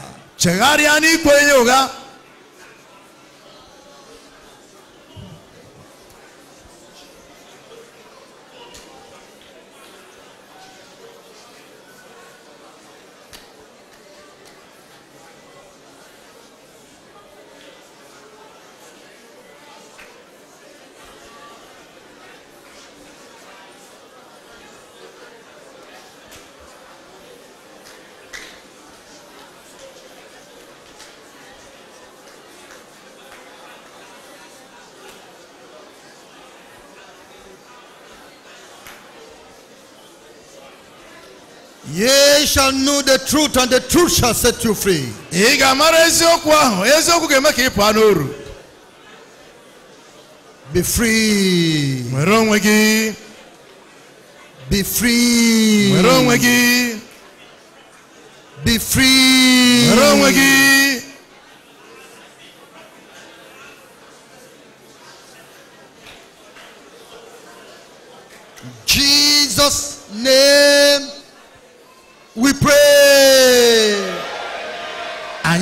S1: Ye shall know the truth and the truth shall set you free. Ị eziokwu ahụ, eziokwu ga Be free. onwe gị. Be free. onwe
S2: gị.
S1: Be free. onwe gị. Jesus name we pray. I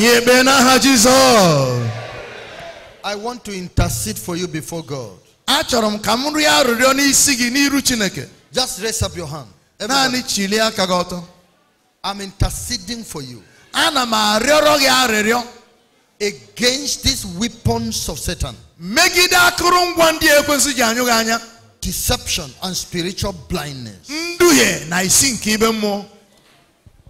S1: want to intercede for you before God. Achọrọ m ka m rịọ arịrịọ n'isi gị n'iru Chineke. Just raise up your hand. Naanị chilie aka gị ọtọ. I'm interceding for you. Ana m arịọrọ gị arịrịọ. Against these weapons of Satan. Megide akụrụngwa ndị ekwensu ji anyụ gị anya. Deception and spiritual blindness. Nduhie na isi nke ibe mmụọ.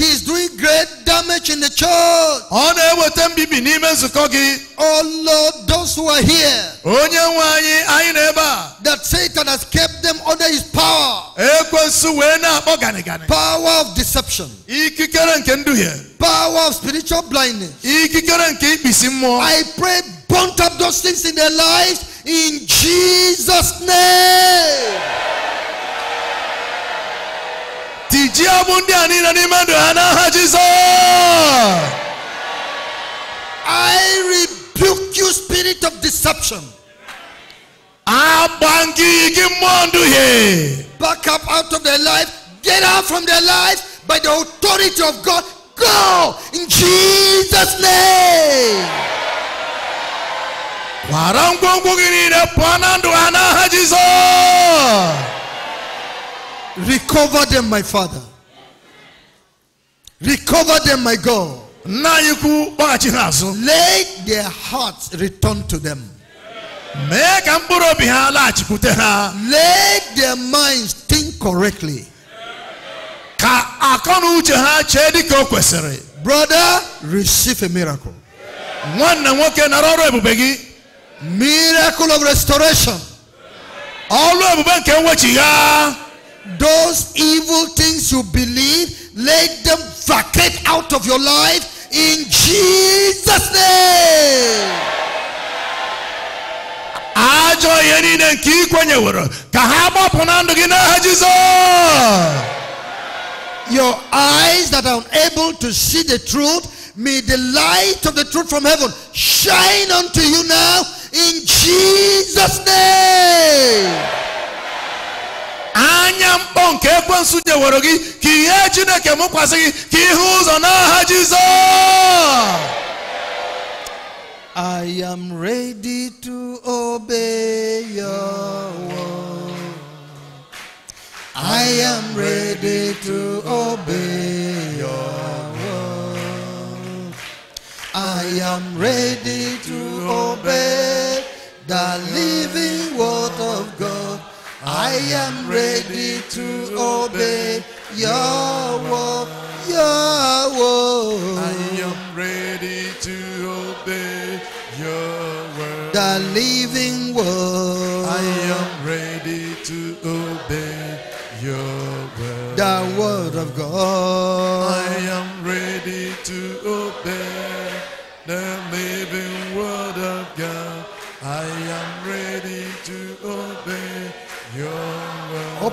S1: He is doing great damage in the church. Oh Lord, those who are here. That Satan has kept them under his power. Power of deception. Power of spiritual blindness. I pray burnt up those things in their lives in Jesus' name tijia ọgbụ anina a niile n'ime I rebuke you spirit of deception agba gị gị mmụọ nduhie back up out of their life get out from their life by the authority of God go in Jesus name kwara ngwongwo gị niile Recover them, my Father. Recover them, my God. Let their hearts return to them. Let their minds think correctly. Brother, receive a miracle. Miracle of restoration. All those evil things you believe, let them vacate out of your life in Jesus' name. Ajọ Your eyes that are unable to see the truth, may the light of the truth from heaven shine unto you now in Jesus' name. anya mkpọ nke ekwensu nwere gị ka ihe chineke mụkwasị gị ka ihe ụzọ n'aha jizọs I am ready to obey
S2: your word. I am ready to obey your word.
S1: I am ready to obey the living word of God. I am ready to obey your word, your word. I am
S2: ready to obey your
S1: word, the living word. I am ready to obey your word, the word of
S2: God. I
S1: am ready to obey.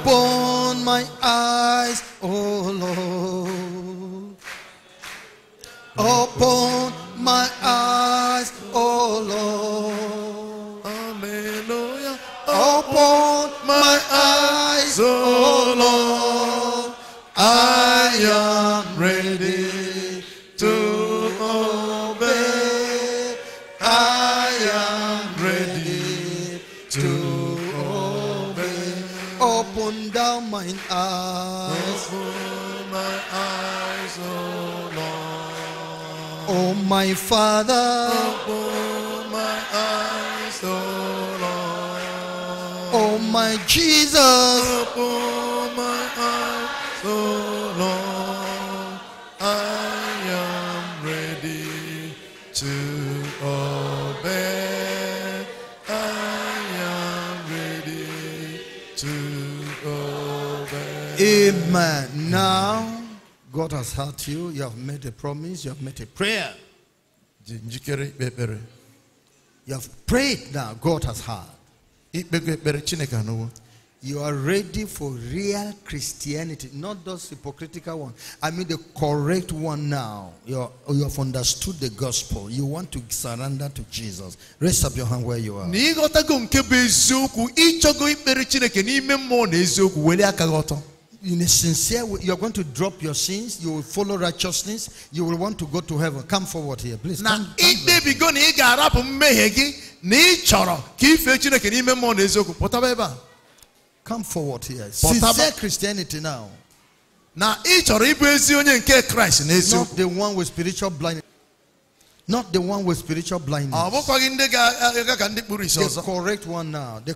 S1: open my eyes,
S2: oh Lord. Open
S1: mine eyes. Oh, my eyes, oh Lord. Oh, my Father. Oh, my eyes, oh Lord. Oh, my Jesus. Oh, my eyes, oh
S3: Amen.
S1: Now, God has heard you. You have made a promise. You have made a prayer. You have prayed now. God has heard. You are ready for real Christianity, not those hypocritical one. I mean the correct one now. you have understood the gospel. You want to surrender to Jesus. Raise up your hand where you are in a sincere way, you're going to drop your sins, you will follow righteousness, you will want to go to heaven. Come forward here, please. Na ikpebigo na ị ga-arapụ mmehie gị na ị chọrọ ka ife Chineke n'ime mmụọ na eziokwu pụtaba ebe a. Come forward here. Sincere Christianity now. Now, each chọrọ ịbụ ezi onye nke Christ na eziokwu. the one with spiritual blindness. Not the one with spiritual blindness. The correct one now. The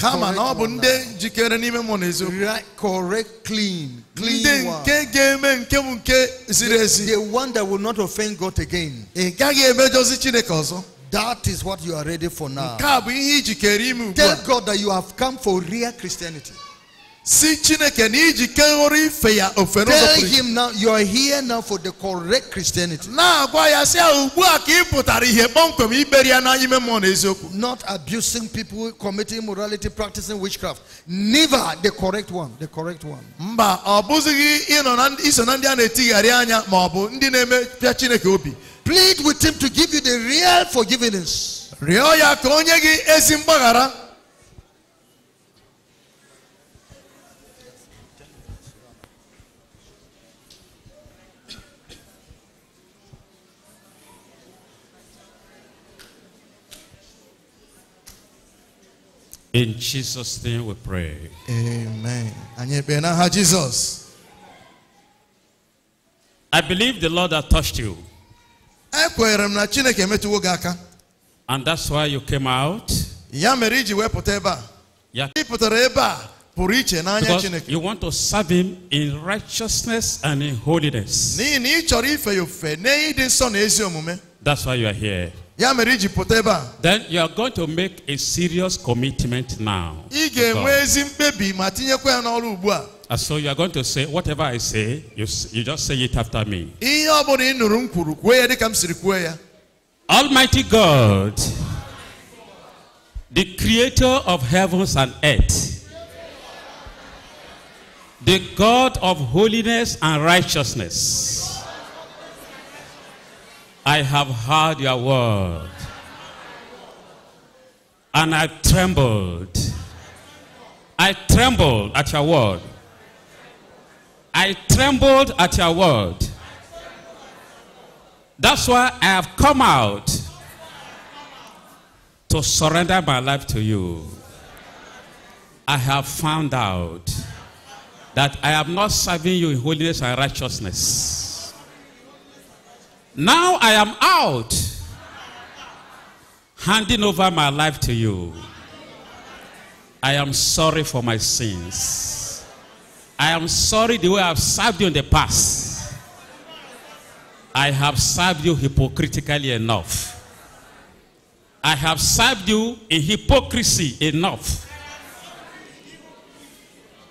S1: correct one now. Right, correct, clean, clean one. The, the one that will not offend God again. That is what you are ready for now. Tell God that you have come for real Christianity. Tell him now you are here now for the correct Christianity. Not abusing people, committing morality, practicing witchcraft. Never the correct one. The correct one. Plead with him to give you the real forgiveness.
S4: In Jesus' name we pray.
S1: Amen. And Jesus.
S4: I believe the Lord has touched you. And that's why you came out. Because you want to serve him in righteousness and in holiness. That's why you are here. Then you are going to make a serious commitment now. And so you are going to say, whatever I say, you, you just say it after me. Almighty God, the creator of heavens and earth, the God of holiness and righteousness, I have heard your word. And I trembled. I trembled at your word. I trembled at your word. That's why I have come out to surrender my life to you. I have found out that I am not serving you in holiness and righteousness. Now I am out, handing over my life to you. I am sorry for my sins. I am sorry the way I have served you in the past. I have served you hypocritically enough. I have served you in hypocrisy enough.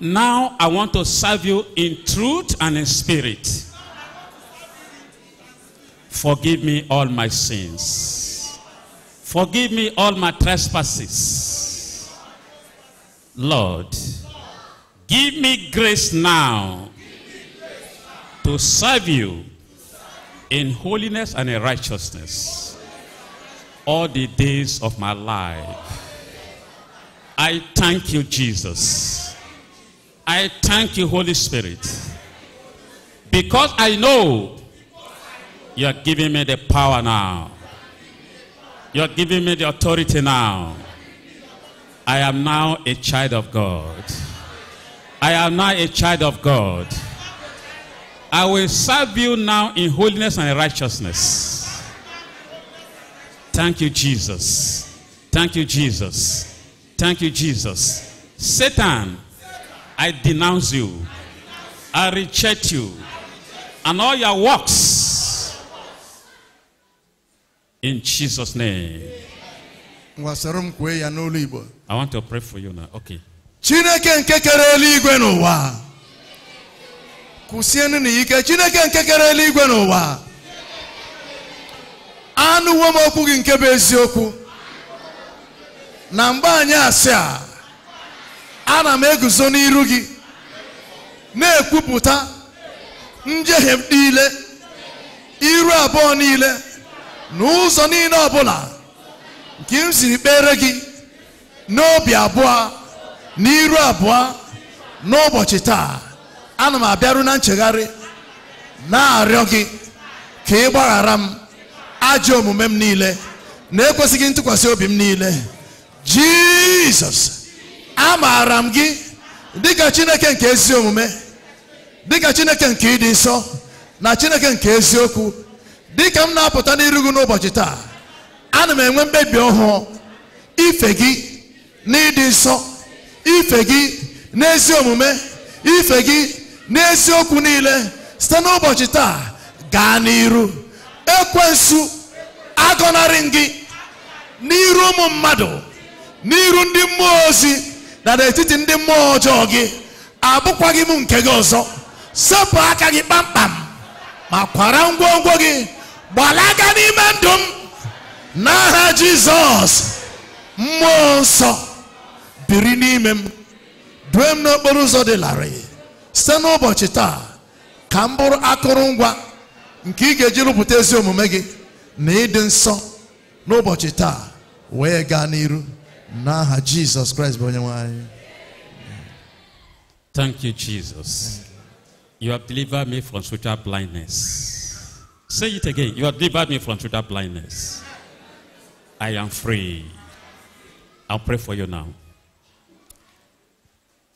S4: Now I want to serve you in truth and in spirit. Forgive me all my sins. Forgive me all my trespasses. Lord, give me grace now to serve you in holiness and in righteousness all the days of my life. I thank you, Jesus. I thank you, Holy Spirit. Because I know you are giving me the power now. You are giving me the authority now. I am now a child of God. I am now a child of God. I will serve you now in holiness and righteousness. Thank you, Jesus. Thank you, Jesus. Thank you, Jesus. Satan, I denounce you. I reject you. And all your works In Jesus' name.
S1: I want
S4: to pray for you now. Okay.
S1: Chineke nke kere eluigwe n'ụwa. Kwụsienụ n'ike Chineke nke kere eluigwe n'ụwa. Anụwo m okwu gị nke bụ eziokwu. Na mgbe anyị asị a, ana m eguzo n'iru gị na-ekwupụta njehie niile, iru abụọ niile. n'ụzọ niile ọbụla nke m siri kpere gị n'obi abụọ n'iru abụọ n'ụbọchị taa ana m abịaru na nchegharị na-arịọ gị ka ị gbaghara m ajọ omume m niile na-ekwesịghị ntụkwasị obi m niile jizọs amaara m gị dịka chineke nke ezi omume dịka chineke nke ịdị nsọ na chineke nke eziokwu dịka m na-apụta n'iru gị n'ụbọchị taa ana m enwe mkpebi ọhụụ ife gị na n'ịdị nsọ ife gị n'ezi omume ife gị n'eziokwu niile site n'ụbọchị taa gaa n'iru ekwensu agọnarị gị n'iru ụmụ mmadụ n'iru ndị mmụọ ozi na n'etiti ndị mmụọ ọjọọ gị abụkwaghị m nke gị ọzọ sepụ aka gị kpamkpam ma kwara ngwongwo gị gbalaga n'ime ndụ m n'aha jizọs mmụọ nsọ biri n'ime m due m n'okporo ụzọ dị larịị site n'ụbọchị taa ka m bụrụ akụrụngwa nke ị ga-eji rụpụta ezi omume gị na ịdị nsọ n'ụbọchị taa wee gaa n'iru n'aha jizọs kraịst bụ onye nwanyị.
S4: Thank you, Jesus. You have delivered me from spiritual blindness. Say it again. You have delivered me from total blindness. I am free. I'll pray for you now.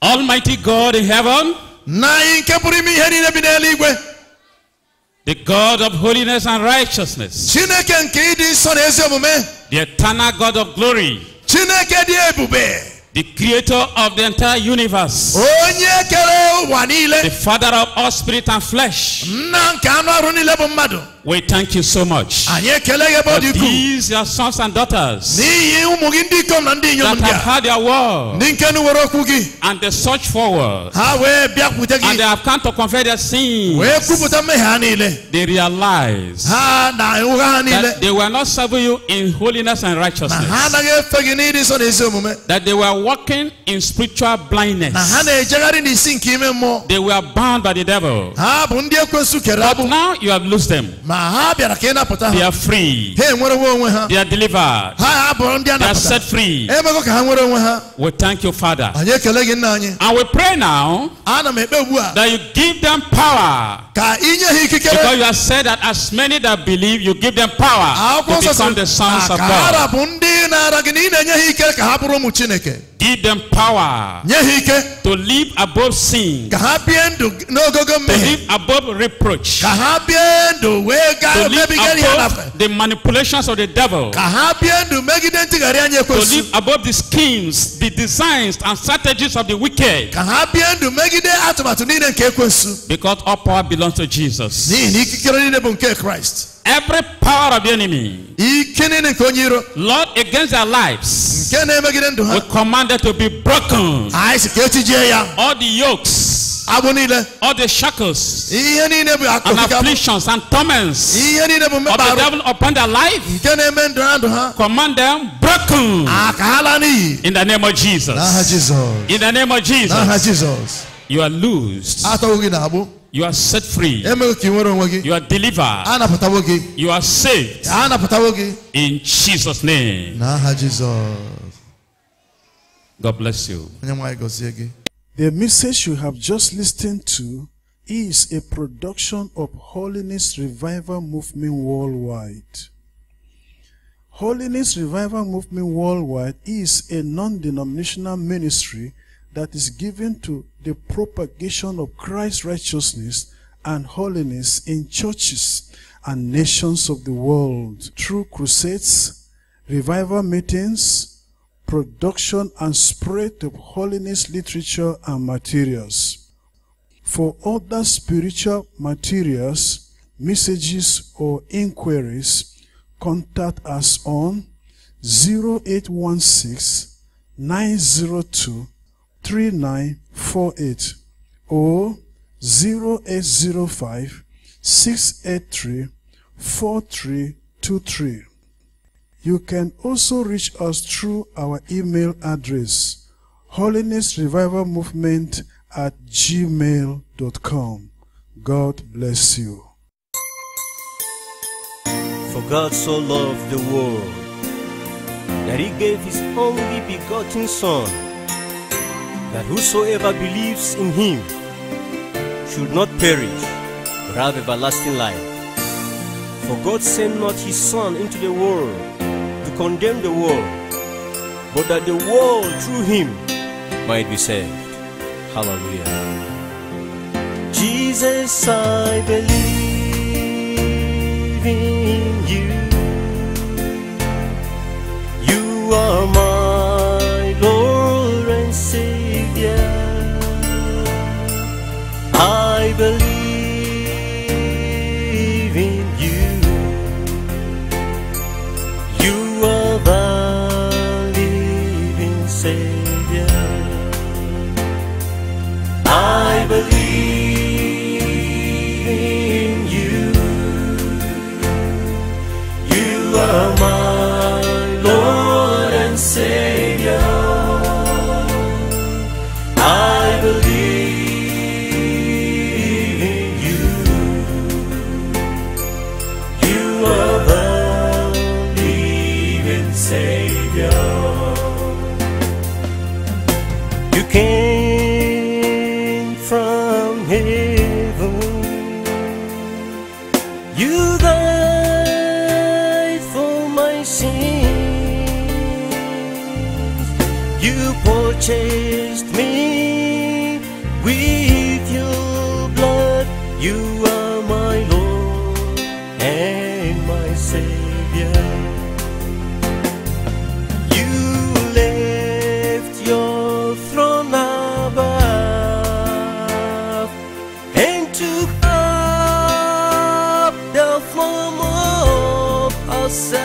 S1: Almighty God in heaven. The
S4: God of holiness and righteousness. The eternal God of glory. the creator of the entire universe. onye kere ụwa niile. the father of all spirit and flesh. nna nke anụ ọrụ niile bụ mmadụ. We thank you so much. For these your sons and daughters that have heard your word and they search forward and they have come to confess their sins. They realize that they were not serving you in holiness and righteousness. That they were walking in spiritual blindness. E they were bound by the devil. But now you have loosed them. They are free. They are delivered. They are set free. We thank you, Father. And we pray now that you give them power. Because you have said that as many that believe, you give them power to become the sons of God. Give them power. To live above sin. To live above reproach. To live above The manipulations of the devil. To live above the schemes, the designs and strategies of the wicked. Because all power belongs to Jesus. N'ihi na ikikere niile bụ nke Christ. Every power of the enemy. Lord, against their lives. We command them to be broken. All the yokes. All the shackles and afflictions and torments of the devil upon their life, command them broken in the name of Jesus. In the name of Jesus. You are loosed. You are set free. You are delivered. You are saved. In Jesus' name. God bless you. The
S3: message you have just listened to is a production of Holiness Revival Movement Worldwide. Holiness Revival Movement Worldwide is a non-denominational ministry that is given to the propagation of Christ's righteousness and holiness in churches and nations of the world through crusades, revival meetings, production and spread of holiness literature and materials. For other spiritual materials, messages or inquiries, contact us on 0816 902 3948 or 0805 683 You can also reach us through our email address holiness revival movement at gmail.com. God bless you.
S2: For God so loved the world that he gave his only begotten Son that whosoever believes in him should not perish, but have everlasting life. For God sent not his Son into the world to condemn the world, but that the world through him might be saved. Hallelujah. Jesus, I believe in you. You are my took up the form of ourselves.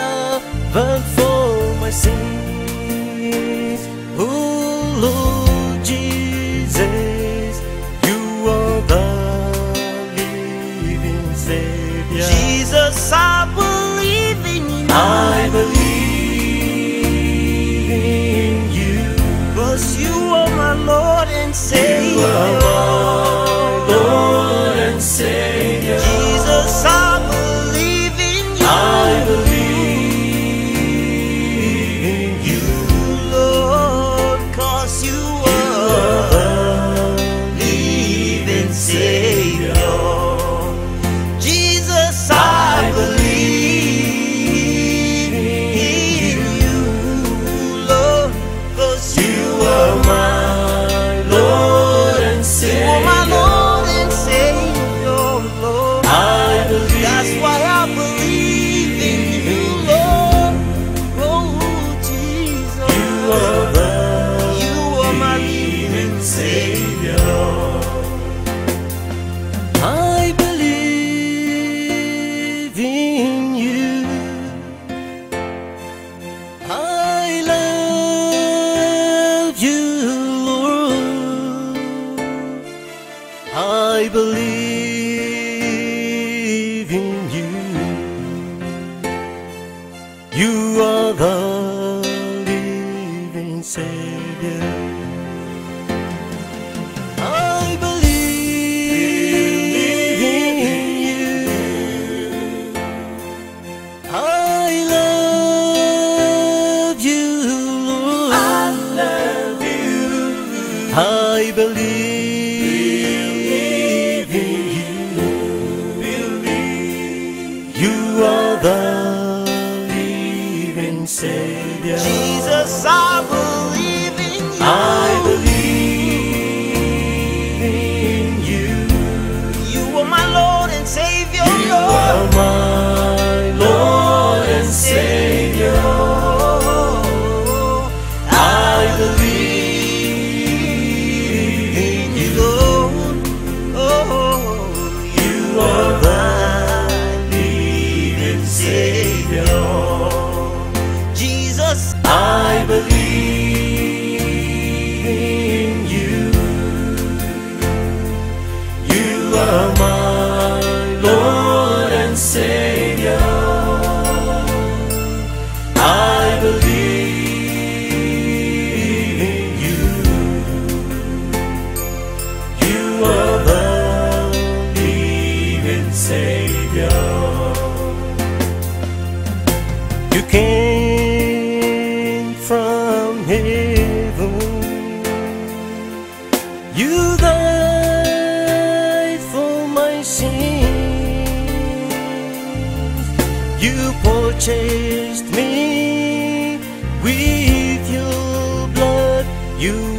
S2: me with your blood. You